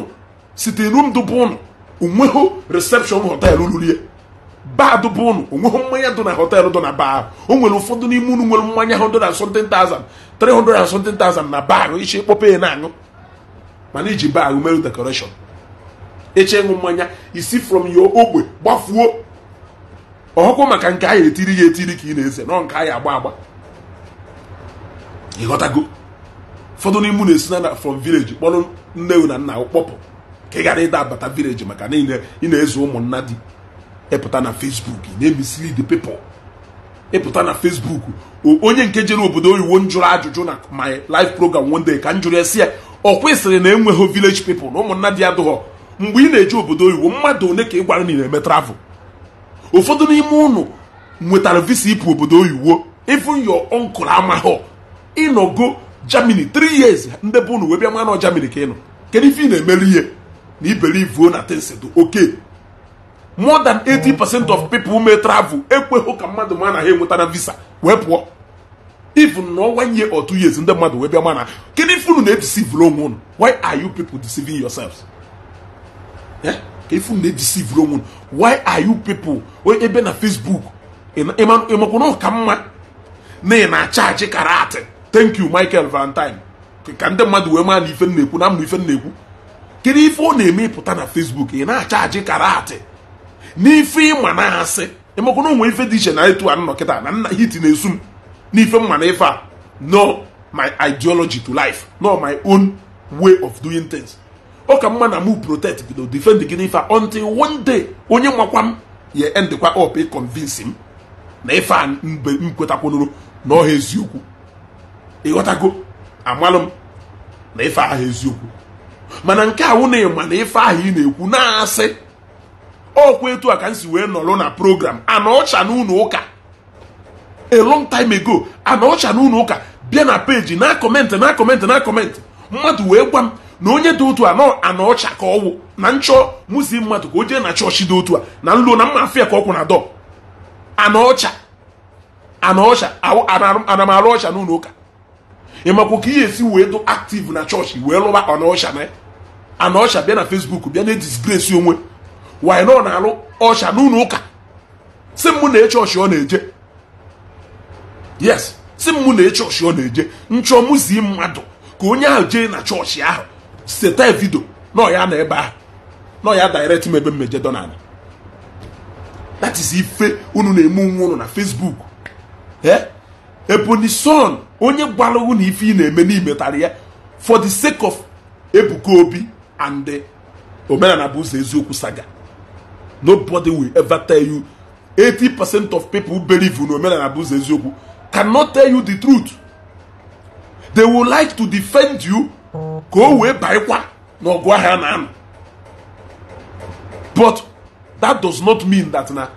sitin rum dụbụ ụnụ onweghị reception hotel ruru ya baa bụ ụnụ onweghị mmanya dụ na họteelụ dụ na baa o nwere ụfọdụ n'ime unu nwere mmanya 170,000 370,000 na baa ichi kpọpa ya na-aṅụ mana iji baa merụ dekọreshọn eche ịṅụ mmanya isi from yo ogbe gbafuo ọhụkwụ maka nke anyị etiri ya etiri ka ị na-eze nọ nke anyị agba agba ịghọtago ụfọdụ n'ime unu esi na from village kpọrọ nne na nna kpọpụ ka ị gara ịda abata village maka na ị na-ezu ụmụnna di ịpụta na Facebook na the people ịpụta na Facebook onye nke jere obodo oyiwo njụrụ ajụjụ na my life program one day ka m jụrụ esi ya ọ kwesịrị na enweghị village people na ụmụnna dị adụghọ mgbe ị na-eje obodo oyiwo mmadụ one ka ị gwara na na-eme travel ụfọdụ n'ime ụnụ nwetara visa ịpụ obodo oyiwo even your uncle amaghọ ịnọgo Germany 3 years ndị bụ unu wee bịa nwa Germany ka ị nọ kedu ife ị na-emere ihe na iberivuo na tensedo oke more than 80% of people who may travel ekweghị ka mmadụ ma na ha enweta na visa wee pụọ even nọ one year or two years ndị mmadụ wee bịa mana kedu ife unu na-edeceive onwe unu why are you people deceiving yourselves eh? ka ife na-edeceive onwe unu why are you people ebe na Facebook ịmakwa na ọka mma na ị na-acha achị karat thank you Michael Valentine ka ndị mmadụ wee maa na ife na-ekwu na m na ife na-ekwu kedu ife ọ na-eme ịpụta na Facebook ị na-acha achị karat n'ife ịma na asị emekwa na ife dị iche na etu a nọ kịta na nna hiti na-esu m n'ife mma na ife a no my ideology to life no my own way of doing things ọ ka mma na mu protect bido defend gị n'ife a until one day onye makwa m ya endekwa up m na ife a mgbe m kwetakwanụrụ na ọha eziokwu ịghọtago amalụ m na ife ahụ eziokwu mana nke a na ịma na ife ahụ ị na-ekwu na-asị ọkwa etu a ka m si wee nọrọ na program anaọcha na ụnụ ụka a long time ago anaọcha na ụnụ ụka bịa na peji na akọmentị na akọmentị na akọmentị mmadụ wee gwa m na onye dị otu a nọ anaọcha ka ọwụ na nchọ muzi mmadụ ka o jee na chọọchị dị otu a na nlo na mma afia ka ọkwụ na dọ anaọcha anaọcha ana ọcha na ọcha ụka ị makwa ka ihe esi wee dụ aktiv na chọọchị wee lụba anaọcha na anaọcha bịa na fesbuk bịa na disgrace onwe wanyị nọ na-alụ ọsha n'ụlọ ụka si mụ na eche ọsha ọ na-eje yes si mụ na eche ọsha ọ na-eje nchọ mmadụ ka onye ahụ jee na chọọchị ahụ seta vidio nọ ya na ebe ahụ nọ ya direct m ebe mmeje donald that is ife unu na-eme onwe unu na facebook ebonyi son onye gwara na ife ị na-eme n'imetara ya for the sake of ebuka obi and omenala bụ ụzọ eziokwu saga nobody will ever tell you 80% of people who believe in omenala eziokwu cannot tell you the truth they will like to defend you ka o wee baịkwa n'ọgụ ahịa na but that does not mean that na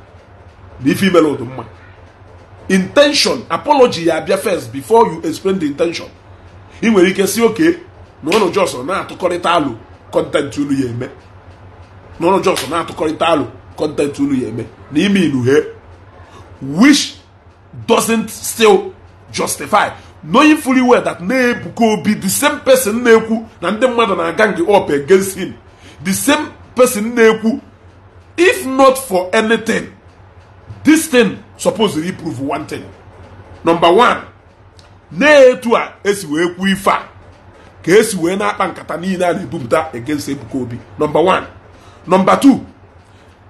the female ụdị mma intention apology ya abịa first before you explain the intention ị nwere ike si oke na ụnụ jos na-atụkọrịta alụ kọntent unu ya eme n'ọrụ jọs na-atụkọrịta alụ kọntentị unu ya eme na ime hie which doesn't still justify knowing fully well that na-ebuka obi the same person na-ekwu na ndị mmadụ na-aga nge up against him the same person na-ekwu if not for anything this thing supposed to prove one thing number one na-etu a esi wee kwuo ife a ka esi wee na-akpa nkata niile a na-ebupụta against ebuka obi number one number two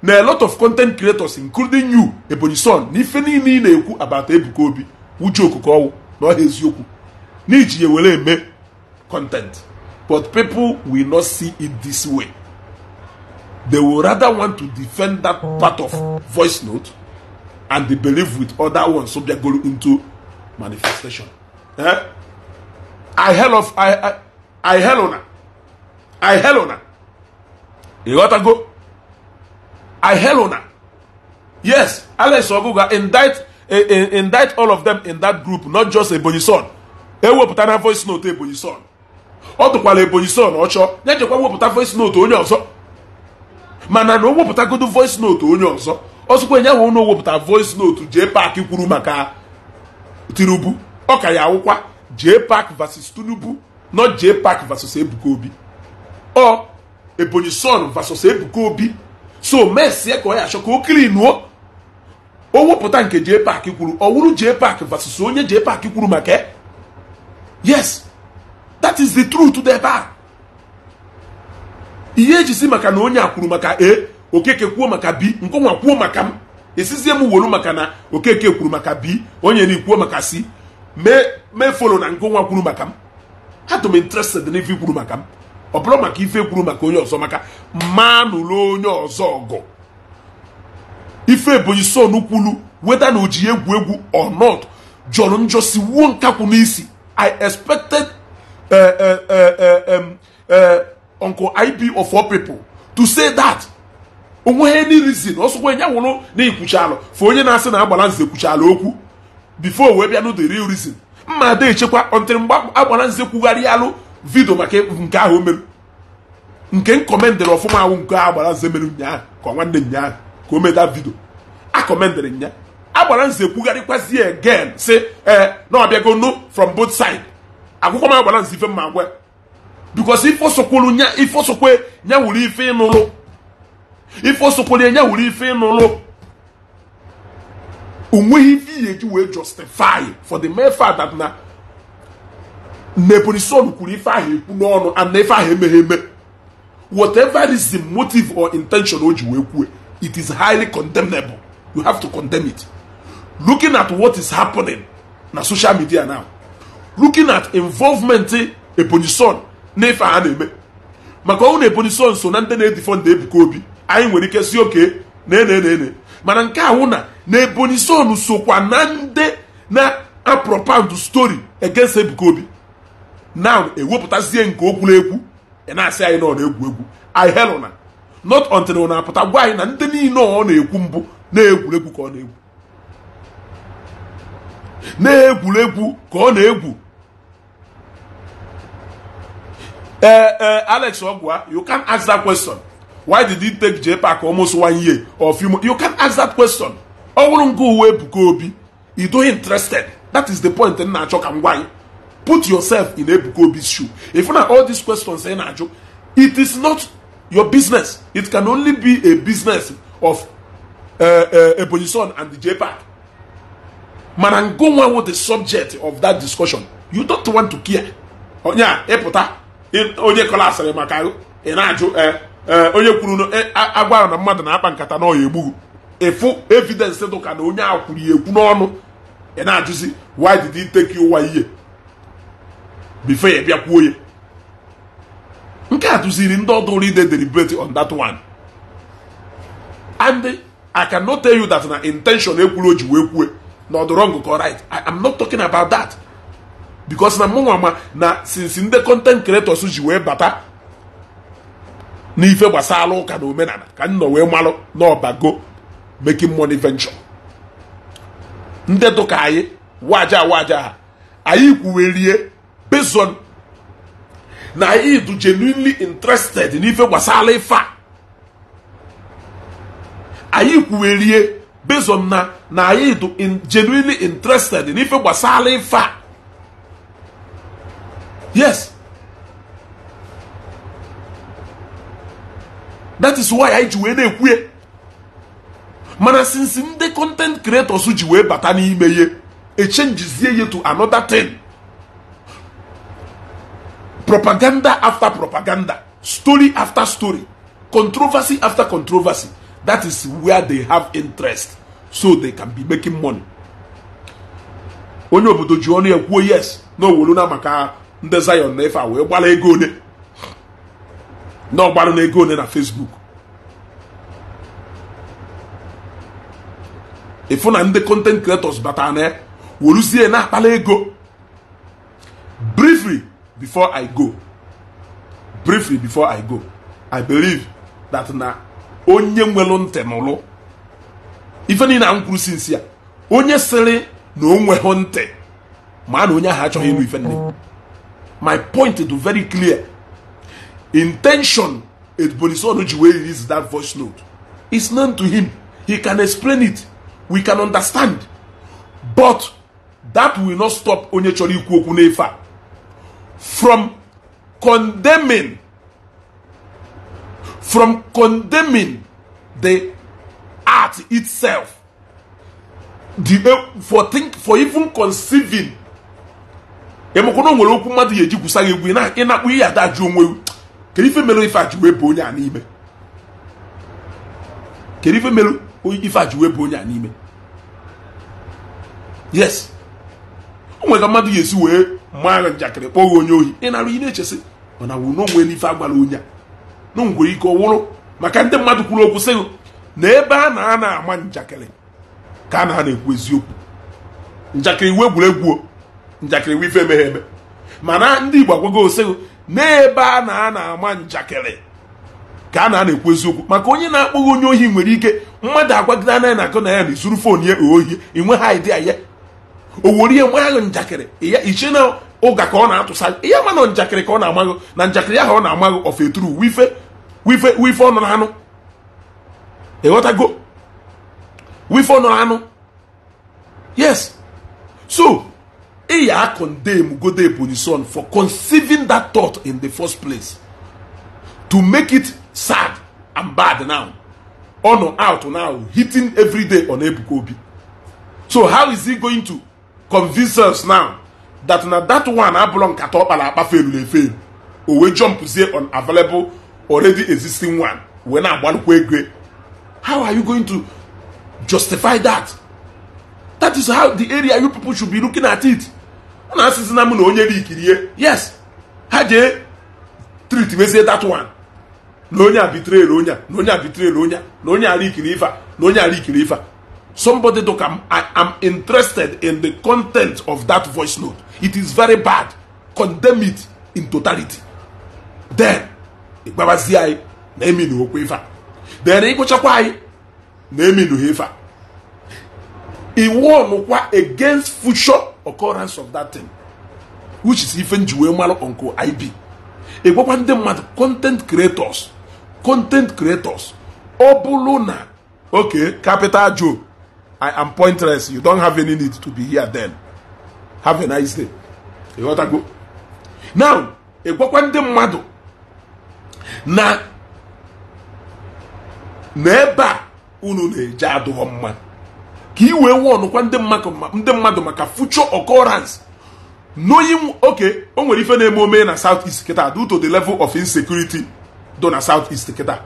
na a lot of content creators including you ebonyi son na niile ị na-ekwu abata ebuka obi wuju okuko ọwụ na ọha eziokwu n'iji ya were eme content but people will not see it this way they will rather want to defend that part of voice note and they believe with other ones so they go into manifestation eh? i hell of i i, I hell on i hell on ịghọtago ihelona yes alex oguga indict e, e, indict all of them in that group not just ebonyi son ewepụta na voice note ebonyi son ọ tụkwala ebonyi son ọchọ ya jekwa wepụta voice note onye ọzọ mana na o wepụtagodo voice note onye ọzọ ọzọkwa enye ahụ na wepụta voice note jee pak kwuru maka tinubu ka ya awụkwa jee park vs tinubu not jee park vs ebuka obi ọ ebonyi son vasos ebuka obi so mesie ka ọ ya achọ ka o kilinuo o wepụta nke jee paaki kwuru ọwụrụ wụrụ jee vasos onye je paaki kwuru maka yes that is the truth dị ebe a ihe eji si maka na onye a kwuru maka a e, okeke kwuo maka b nkonwa kwuo maka m esizie m maka na okeke kwuru maka b onye na ikwuo maka si mee folo na nkonwa kwuru maka m ha interested kwuru maka m ọ bụrụ maka ife kwuru maka onye ọzọ maka mma nụrụ onye ọzọ ọgụ ife ebonyi son kwulu weda na oji egwu egwu or not jọrọ njọ si wuo nkakwụ n'isi i expected eh, eh, eh, uncle ib of all people to say that onweghị any reason ọsọkwa ya nwụrụ na ikwucha alụ fa onye na-asị na agbala nze kwucha okwu before wee bịa nụ the real reason mma ada echekwa ọntịrị mgbe agbala nze kwugharịa alụ vidio maka nke ahụ o mere nke m kọmendịrị ọfụma ahụ nke ahụ agbara nze mere ụnyaahụ ka ọ nwanne ụnyaahụ ka o meta vidio a kọmendịrị nya agbara nze kwugharịkwazi ya again si ee na ọbịago no from both side akwụkwọ m agbara nze ife mma agwa bikos ife osokwuru nya ife osokwe nya wuru ife ịnụlụ ife osokwere nya wuru ife ịnụlụ onweghị ife iyi eji wee justify for the mere fact that na Nebuchadnezzar kwuru ife ahụ ekwu n'ọnụ and na ife ahụ emeghe eme whatever is the motive or intention o ji wee kwue it is highly condemnable you have to condemn it looking at what is happening na social media now looking at involvement e, Ebonyi Son ife a na-eme maka ọnwụ na Ebonyi Son so na ndị na-edifọ ndị Ebuka Obi anyị nwere ike si oke na enenene mana nke ahụ na na Ebonyi Son sokwa na ndị na apropand story against Ebuka Obi now ewepụtazie nke o kwuru ekwu na-asị anyị na ọ na-egwu egwu anyị na not until ọ na-apụta gwa anyị na ndị niile ọ na-ekwu mbụ na-egwuregwu ka ọ na-egwu na-egwuregwu ka ọ na-egwu ee ee alex ogwa you can ask that question why did he take jpac almost one year or few months you can ask that question ọ bụrụ nke uwe ebuka obi you interested that is the point m na-achọ ka m gwa anyị put yourself in Ebuka Obi's shoe. If na all these questions in Ajo, it is not your business. It can only be a business of uh, uh Son and the JPAC. Manango one with the subject of that discussion. You don't want to care. Onya oh, eputa onye kolasịrị maka ị na-ajụ eh, eh, onye kwuru eh, agwara na mmadụ na-akpa nkata na ọya egbughị ịfụ evidence dụka na onye a kwuru ekwu n'ọnụ ị na-ajụzi why did he take you ihe before ya kwuo ya nke a tụziri ndị ọdụrụ ide deliberate on that one and i cannot tell you that na intention ekwuru o ji wee kwue na ọ dị wrong right i am not talking about that because na mụnwa ma na since ndị content creators ji wee bata n'ife gbasara ụka na omenala ka m nọ wee malụ n'ọbago making money venture ndị dụka anyị waja waja ha anyị kwuwerie reason na anyị dị genuinely interested n'ife gbasara ife a anyị kwuwerie based on na na anyị dị genuinely interested n'ife gbasara ife a yes that is why anyị ji wee na-ekwue mana since ndị content creators ji wee bata n'ime ihe echenjizie ya to another thing propaganda after propaganda, story after story, controversy after controversy. That is where they have interest, so they can be making money. onye obodo ji kwuo yes na na maka ndị Zion na ife a wee gbara ego ole na ọgbara na ego ole na Facebook ịfụ na ndị content creators batara na ya na-akpala ego briefly before i go briefly before i go i believe that na onye nwelu ntị n'ụlụ ife niile na kwuru sinsi ya onye sịrị na o nweghị ntị ma na onye ahụ achọghị ịnụ ife nne my point do very clear intention edbonisonu ji wee release that voice note is known to him he can explain it we can understand but that will not stop onye chọrọ ikwu okwu n'efe a from condemning from condemning the art itself the eh, for think for even conceiving emekwana eh, nwere okwu mmadụ ya eji gwusa egwu na-akpụ ihe adajụ onwe kedu ife mere ife ajụwe wee bụ onye a n'ime kedu ife mere ife ajụwe wee bụ onye a n'ime yes o nwere ka mmadụ ga-esi wee mma njakịrị kpọọ onye ohi ị na na-echesi mana na wụ n'onwere ife agwara onye a na nwere ike ọwụrụ wụrụ maka ndị mmadụ kwuru okwu sị na ebe a na a na-ama njakịrị ka a na a na-ekwu eziokwu njakịrị iwu egwuregwu njakịrị iwu ife emeghe eme mana ndị Igbo agwago osegụ na-ebe a na a na-ama njakịrị ka a na a na-ekwu eziokwu maka onye na-akpọghị onye ohi nwere ike mmadụ agwagide anaghị na akụ na ya na izuru fon ya ohi inwe ha idea ya o were ihe mgbanya ahụ njakịrị ya iche na ụga ka ọ na-atụsa ihe ama na njakịrị ka ọ na-amaghị na njakịrị ahụ ọ na-amaghị ofe eturu wife wife wife ọnụ na anụ ịghọtago wife ọnụ anụ yes so ịya condemn Godebonyison for conceiving that thought in the first place to make it sad and bad now ọnụ out now hitting every day on Ebuka Obi so how is he going to convince us now that na that one abụrụ nkata ọkpara kpara akpa feluru efelu o wee jọmpụzie on available already existing one wee na-agbalụkwa ego how are you going to justify that that is how the area you people should be looking at it ọ na asị na m na onye rikirie yes ha jee me mezie that one na onye abitrel onye na onye abitrel onye na onye ara ife na onye ara ikiri somebody look I'm, I, am interested in the content of that voice note it is very bad condemn it in totality then ịgbabazie anyị na eminu okwu ife a then ịgụchakwa anyị na eminu ha ife a iwonụkwa against future occurrence of that thing which is ife nji wee malụ onko ib ịgwakwa ndị mmadụ content creators content creators ọ bụrụ na oke capital joe I am pointless. You don't have any need to be here then. Have a nice day. You want to go? Now, ị gwakwa ndị mmadụ na n'ebe a unu na-eje adụghọ mma ka i wee wọnụkwa ndị mmadụ maka future occurrence knowing okay o nwere ife na-eme omee na south east kịta due to the level of insecurity do na south east kịta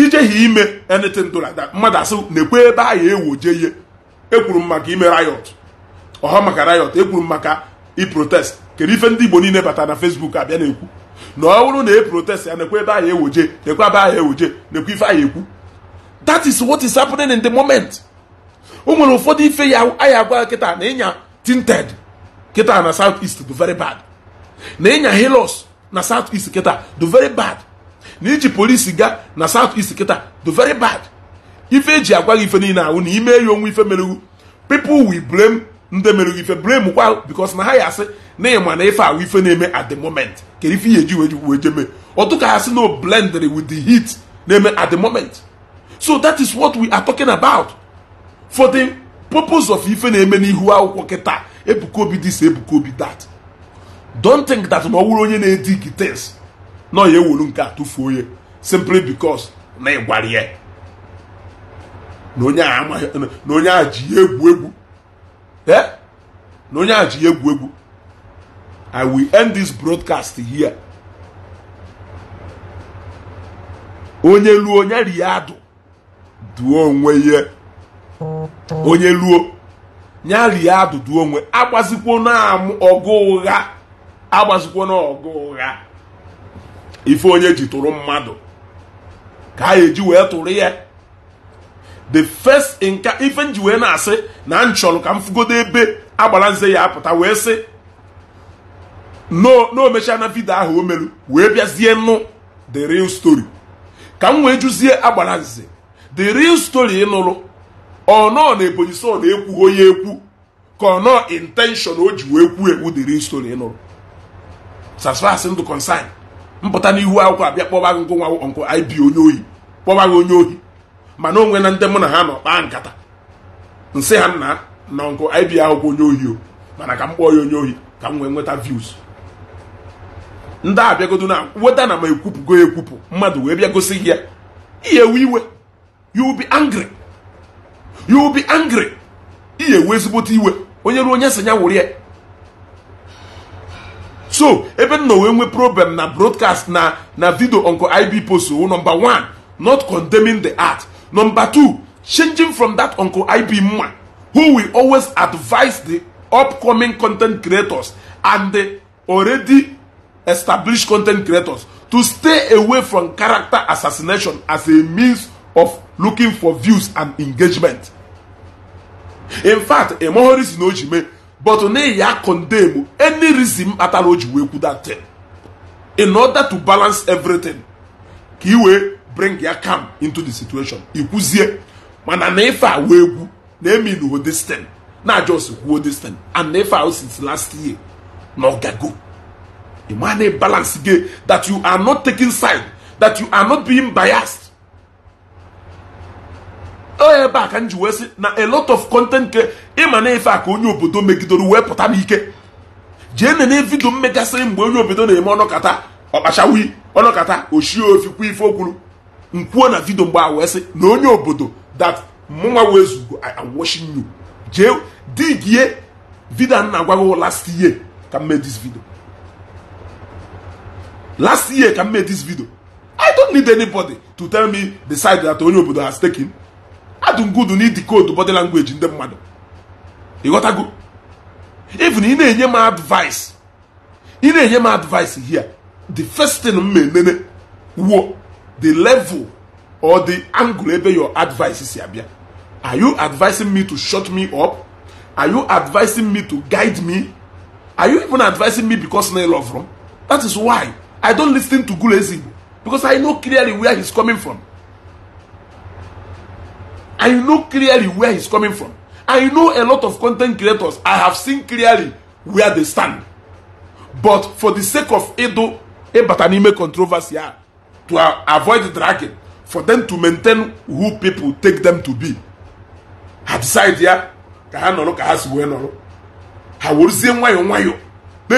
ijeghị ime anything do like mmadụ asị na-ekwe ebe a ya ewoje ihe ekwuru m maka ime riot ọha maka riot ekwuru m maka iprotest kedu ife ndị Igbo niile bata na Facebook abịa na-ekwu na ọ bụrụ na e protest ya na-ekwe ebe a ya ewoje na-ekwe ebe a ya ewoje na-ekwe ife a ya ekwu that is what is happening in the moment o nwere ụfọdụ ife ya anyị agwa kịta na ịnya tinted kịta na south east do very bad na ịnya hilos na south east kịta do very bad na iji polisi gaa na south east kịta do very bad ife eji agwa gị ife niile ahụ na ime ya onwe ife merewu pipu wi blame nde merewu ife blame kwa because na ha ya asị na ịma na ife ahụ ife na-eme at the moment kedu ife ihe ji wee je ọtụka ha sị na blendere with the heat na-eme at the moment so that is what we are talking about for the purpose of ife na-eme n'ihu akwụkwọ kịta ebuka obi this ebuka obi that don't think that na ọ wụrụ onye na-edi things nọ ya ewuru nke a tụfuo ya simply because na ịgwara ya na onye a ji ya egwu egwu eh na onye a ji ya egwu egwu i will end this broadcast here onye luo onye riadụ duo onwe ya onye luo nya riadụ duo onwe agbazikwo na ọgụ ụgha agbazikwo na ọgụ ụgha ife onye ji tụrụ mmadụ ka a eji wee tụrụ ya the first nka ife nji wee na-asị na m ka m fugodo ebe agbalanze ya apụta wee sị no omechaa na vidio ahụ o meru wee bịazie nụ the real story ka m wee jụzie agbara the real story ịnụrụ ọnọọ na ebonyi so na onye ekwu ka ọnọọ intention o ji wee kwuo ekwu the real story ịnụrụ sasfas ndụ consign mpụta n'ihu akwụkwọ abịa kpọba gị nkụ nkụ ibi onye ohi kpọba gị onye ohi mana onwe na ndị mụ na ha nọ kpaa nkata nsị ha nna na nkụ ibi akwụkwọ onye ohi o mana ka m kpọọ ya onye ohi ka m wee nweta views ndị a bịagodo na weta na ma ekwupụgo ekwupụ mmadụ wee bịa gosi gị ya ihe iwe you'll be angry you'll be angry ihe ezigbote iwe onye ruo onye sị ya wụrụ ya so ebe nọ wee nwee problem na broadcast na na video onko ib post number one not condemning the art number two changing from that onko ib mma who will always advise the upcoming content creators and the already established content creators to stay away from character assassination as a means of looking for views and engagement in fact emohori si na but na-eyi a condemn any reason kpatara o ji wee kwu that thing in order to balance everything ka i wee bring ya calm into the situation ikwuzie mana na ife a wee kwu na emin ho this thing na just kwuo this thing and na ife a since last year na ọ gago ịma na balance gị that you are not taking side that you are not being biased ebe a ka m ji wee sị na a lot of content nke ịma na ife a ka onye obodo megidoro wee pụta m ike jee nene vidio m mgbe onye obodo na-eme ọnọkata ọkpachawi ọnọkata ochie ofikwu ife okwuru nkwuo na vidio mgbe a wee sị na onye obodo that mụnwa wee zugo washing you jee digie vidio na agwaghị last year ka m mee vidio last year ka m mee vidio i don't need anybody to tell me the side that onye obodo has taken adungudu na idikoodu body language ndị mmadụ ịghọtago even ị na-enye m advice ị na-enye m advice here the first thing m na-enene wuo the level or the angle ebe your advice si abịa are you advising me to shut me up are you advising me to guide me are you even advising me because na love from that is why i don lis ten to Gulezi because i know clearly where he's coming from i know clearly where he's coming from. I know a lot of content creators, I have seen clearly where they stand. But for the sake of Edo, Ebatanime controversy, to avoid dragon for them to maintain who people take them to be, ha decide ya ka ha nọrọ ka ha si wee nọrọ ha weruzie nwayọọ nwayọọ na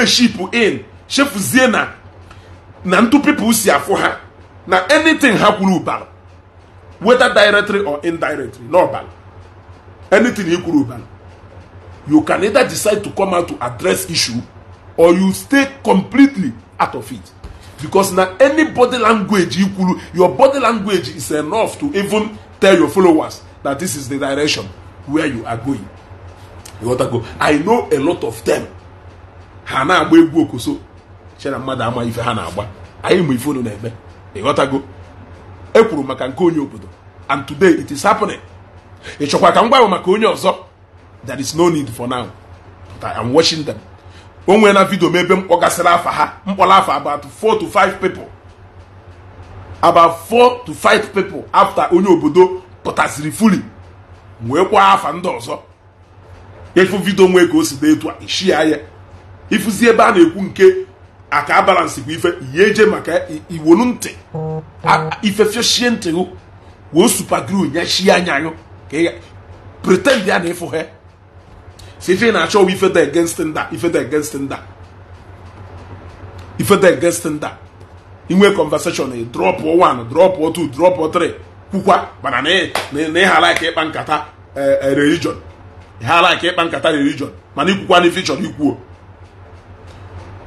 in shefuzie na na ntu people si afụ ha na anything ha kwuru ụbara whether directly or indirectly anytin anything kwuru ụbala you can either decide to come out to address issue or you stay completely out of it because na any body language you kwuru your body language is enough to even tell your followers that this is the direction where you are going you go i know a lot of them ha na-agba egwu okoso chere mmadụ ama ife ha na-agba anyị ma ife unu na-eme ekwuru maka nke onye obodo and today it is happening ị chọkwa ka m gwanwe maka onye ọzọ there is no need for now but I am watching them o nwee na vidio m ebe m kpọgasịrị afa ha mkpọrọ afa about four to five people about four to five people after onye obodo pụtasịrị fuli wee kwa afa ndị ọzọ ịfụ vidio nwee ka o si dị etu a ishia ya ịfụzi ebe a na-ekwu nke aka balance bụ ife ihe eje maka iwolu ntị ifefiochie ntị gụ wee supagru nyechie anya gụ ka ị pretend ya na ịfụ ha si ife na-achọ ife ifeta against nda ifeta against nda ifeta against nda inwe conversation drop one drop two drop three kwukwa mana na ịhala ka ịkpa nkata eh, eh, religion ịhala ka ịkpa nkata religion mana ikwukwa na ife ị chọrọ ikwuo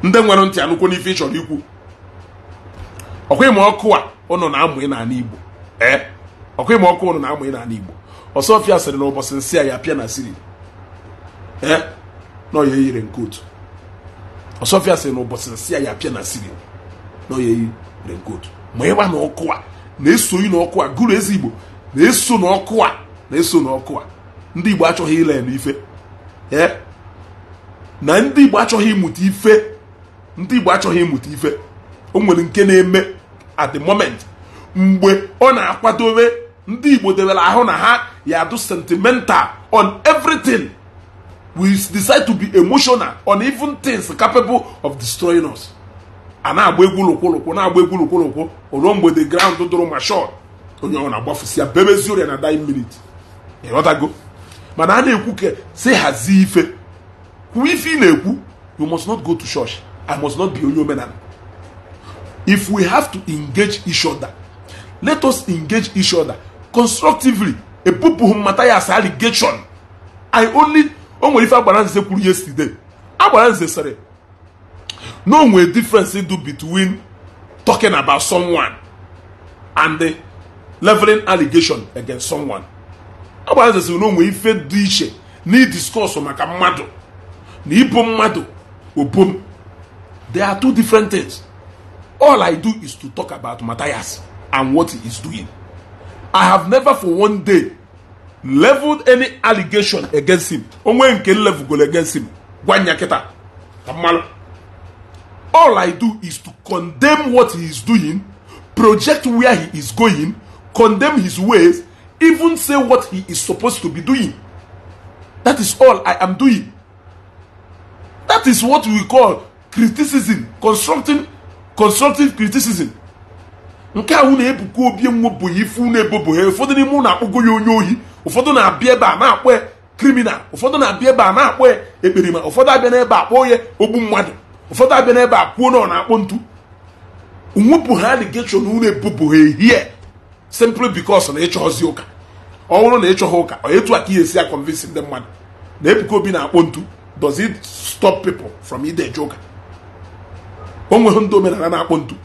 ndị nwere ntị anụkwu n'ife ị chọrọ ikwu ọkwa ịma ọkụ a ụnụ na-amụ ị n'ala Igbo ee ọkwa ọkụ ụnụ na-amụ ị ana Igbo Ọsọfịa sịrị na ụbọchị nsị a ya pịa na siri ee na ọya eyiri nke otu Ọsọfịa sịrị na ụbọchị nsị a ya pịa na siri na ọya eyiri nke otu ma ịwa na ọkụ a na-esoyi n'ọkụ a gụrụ ezi Igbo na-eso n'ọkụ a na-eso n'ọkụ a ndị Igbo achọghị ile n'ife ee na ndị Igbo achọghị ịmụta ife ndị Igbo achọghị ịmụta ife o nwere nke na-eme at the moment mgbe ọ na-akwadobe ndị Igbo debere ahụ na ha ya do sentimental on everything we decide to be emotional on even things capable of destroying us a na-agba egwu na-agba egwu lụkwụlụkwụ ruo mgbe the ground dụrụ ma shot onye ọ na-agbafusi ya bebezi ọrịa na dying minute ịghọtago mana a na-ekwu ka si hazie ife kwuo ife ị na-ekwu you must not go to church I must not be Onyomenan. If we have to engage each other, let us engage each other constructively. A people who matter as allegation. I only only ife agbara nze kwuru yesterday. Agbara nze sịrị na onwe difference do between talking about someone and the leveling allegation against someone. Agbara nze sịrị na onwe ife dị iche na ịdiscọs maka mmadụ na ịbụ mmadụ obom There are two different things. All I do is to talk about Matthias and what he is doing. I have never for one day leveled any allegation against him. Onwe nke level against him. Gwanya keta. All I do is to condemn what he is doing, project where he is going, condemn his ways, even say what he is supposed to be doing. That is all I am doing. That is what we call criticism constructive constructive criticism nke ahụ na-ebukwa obi nwebụghị ife unu ebobo ha ụfọdụ n'ime unu akpụgo ya onye ohi ụfọdụ na-abịa ebe a na-akpọ kriminal ụfọdụ na-abịa ebe a na-akpọ ya ekperima ụfọdụ abịa n'ebe akpọ onye ogbu mmadụ ụfọdụ abịa n'ebe akpụo na ọ na-akpọ ntu nwepụ ha aligeshon unu ebubo ha ehie simpli bikos na ịchọzi ụka ọ na ịchọghị ụka ọ etu a ka ihe esi akọnvinsi ndị mmadụ na ebuka obi na-akpọ ntu does it stop people from ide eje ụka o nweghị ndị omenala na-akpọ ntu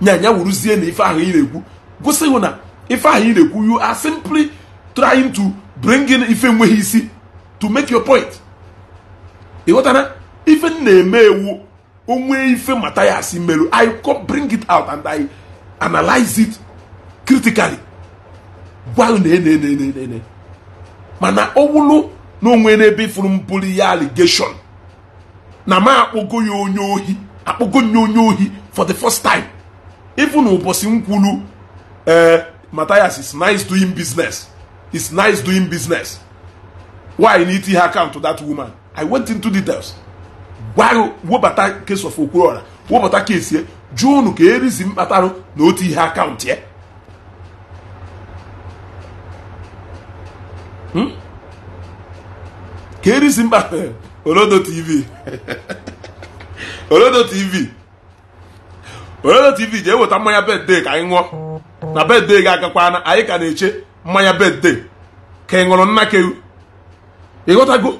nyanya wuruzie na ife ahụ ị na-ekwu gosi hụ na ife ahụ ị na-ekwu you are simply trying to bring in ife nweghị isi to make your point ịghọtara ife m na-eme ewu onwe ife mata ya asị merụ i come bring it out and i analyze it critically gwa na-ene mana ọ na onwe n'ebe ifuru m ya allegation na m akpọgo ya onye ohi akpọgo nye onye ohi for the first time ifu na ụbọchị nkwulu ee eh, Matthias is nice doing business is nice doing business why na iti ha account to that woman I went into details gwa webata case of Okorola webata case ye jụọ unu ka erizi mkpatarụ na otu ihe akaụntụ ya hmm? ka erizi mkpatarụ olodo tv olodo tv olodo tv jee eweta mmanya bedde ka anyị ṅụọ na bedde gị agakwana anyị ka na-eche mmanya bedde ka ị ṅụrụ nna kewu ịghọtago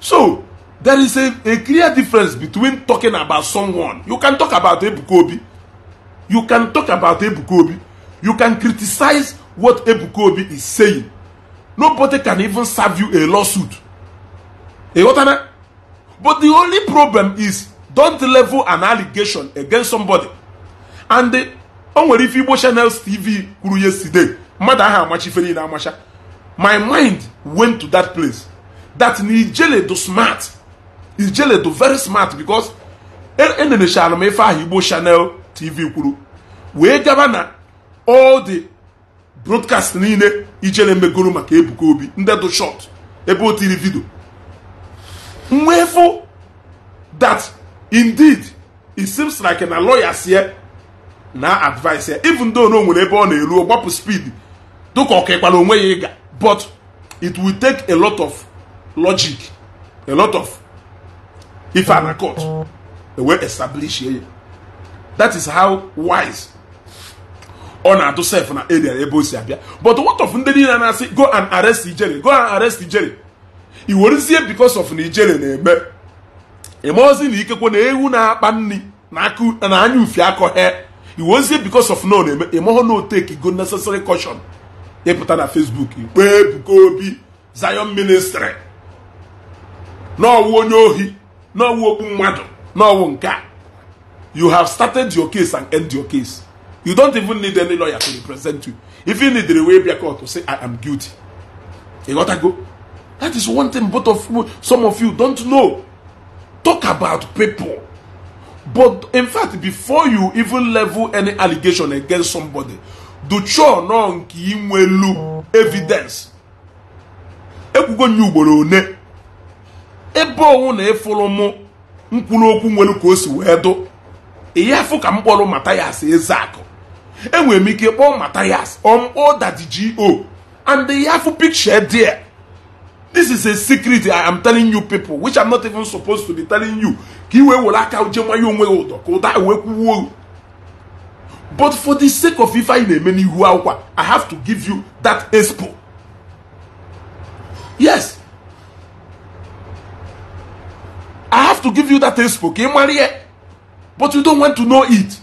so there is a, a clear difference between talking about someone you can talk about Ebukobi you can talk about Ebukobi you can criticize what Ebukobi is saying nobody can even serve you a lawsuit ịghọtana but the only problem is don't level an allegation against somebody and o nwere ife igbo channels tv kwuru yesterday mmadụ ahụ amachifere niile amacha my mind went to that place that na ijele do smart ijele do very smart because enenechara m ife ahụ igbo channel tv kwuru wee gaba na all the broadcast niile ijele megoro maka ebuka obi ndị do short ebe o tiri vidio nwefụ that indeed it seems like na lawyers here na advice here even though na nwere ebe ọ na-eru gbapụ speed dịka ọka kekwara onwe ya ịga but it will take a lot of logic a lot of if I na court wee establish ya that is how wise ọ na-adụ sef na area ebe o si abịa but what of ndị niile na-asị go and arrest ijere go and arrest ijere i because of na ijere na-eme ozi na ikekwe na ewu na-akpa nri na anya ufi akọhe iweozie because of no na-eme ịmahụ na oteki go necessary caution ịpụta na Facebook ikpe Ebuka Obi Zion ministry n'ọwụ onye ohi n'ọwụ okpu mmadụ n'ọwụ nke you have started your case and end your case you don't even need any lawyer to represent you if you need a way bịa court say i am guilty ịghọtago that is one thing both of some of you don't know talk about people. But in fact, before you even level any allegation against somebody, do chore nọ nke inwelu evidence ekwugo ugboro one ebe na ịfụrụ mụ okwu nwere ka o si wee do ihe yafu ka m kpọrọ Mathias Ezeaku enwere m ike kpọọ Mathias ọmkpọ um, o and ihe yafu piche dị this is a secret i am telling you people which i'm not even supposed to be telling you ka iwe were aka uje nwayo onwe gị ụdọ ka ụda e wee kwuwuo but for the sake of ife anyị na-eme n'ihu akwụkwọ i have to give you that expo yes i have to give you that expo ka ị mara ihe but you don't want to know it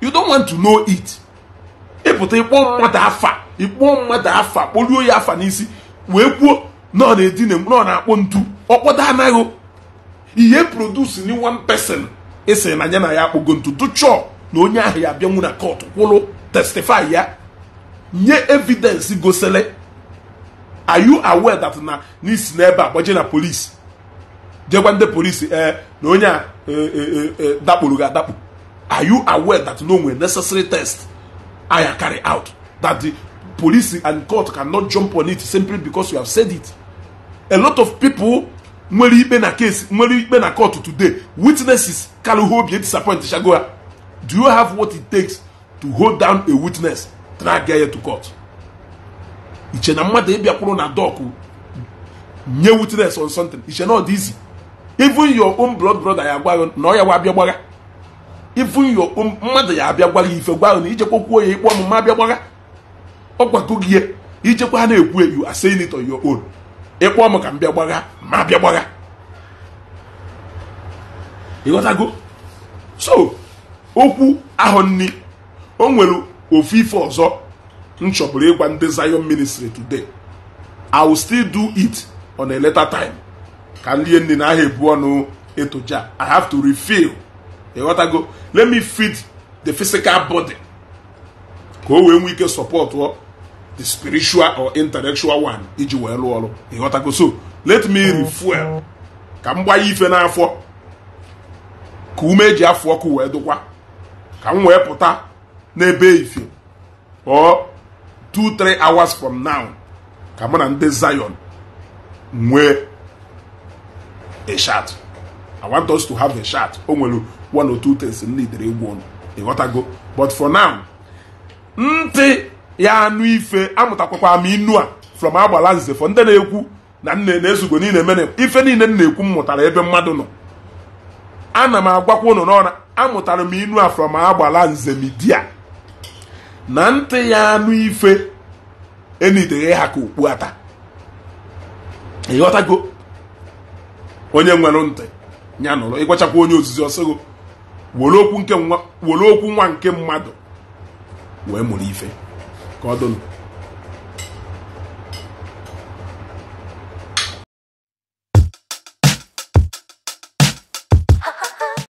you don't want to know it ịpụta ịkpọ mmadụ afa ịkpọ mmadụ afa kpoluo ya afa n'isi wee kwuo nọ na-edina nọ na-akpọ ntu ọkpọdo anaghị ihe produce ni one person esi na anya na ya akpọgo ntu tụchọọ na onye ahụ ya abịanwu na kọt kwụrụ testify ya nye evidence gosele are you aware that na n'isi n'ebe a gbaje na polisi jegwa ndị polisi ee na onye a e, e, e, dakpụrụ gị adakpụ are you aware that no nwere necessary test aya carry out that the police and court cannot jump on it simply because you have said it a lot of people nwere ikpe na case nwere ikpe na court today witnesses can obi you disappoint shagoya do you have what it takes to hold down a witness drag her to court iche na mmadụ ịbịakwuru na dọkụ nye witness on something iche na ọ dị easy even your own blood brother ya gwa na ọ ya wa abịa even your own mmadụ ya abịa gwagha ife gwa na ijekwa kwuo onye ikpe ọmụma abịa ọgwago gị ihe ijekwa na-ekwu you are saying it on your own m ka m bịa gbagha ma bịa gbagha ịghọtago so okwu ahụ nni o nwere ofu ife ọzọ m chọburu ịgwa ndị Zion ministry today I will still do it on a later time ka ndị nne na aha ebu ọnụ etoja I have to refill ịghọtago let me feed the physical body ka o wee nwee ike sọpọtụ the spiritual or intellectual one iji wee lụọ ọrụ ịghọtago so let me oh. refuel ka m gbanye ife n'afọ ka ume eji afọ ọkụ wee dụkwa ka m wee pụta n'ebe ife or two three hours from now ka mụ na ndị Zion nwee a shot I want us to have a shot o nwere one or two things m egwu ọnụ ịghọtago but for now ntị ya anụ ife amụtakwakwa m inu a from agbala nzefọ ndị na-ekwu na nne na-ezugo niile mere ife niile m na-ekwu m mụtara ebe mmadụ nọ ana m agwakwa ụnụ n'ọra amụtara m inu a from agbala nze midia na ntị ya anụ ife enideghe ha ka okpu ata ịghọtago onye nwere ntị ya nụrụ ịgwachakwa onye ozizi ọsịgo were okwu nwa nke mmadụ wee mụrụ ife Codon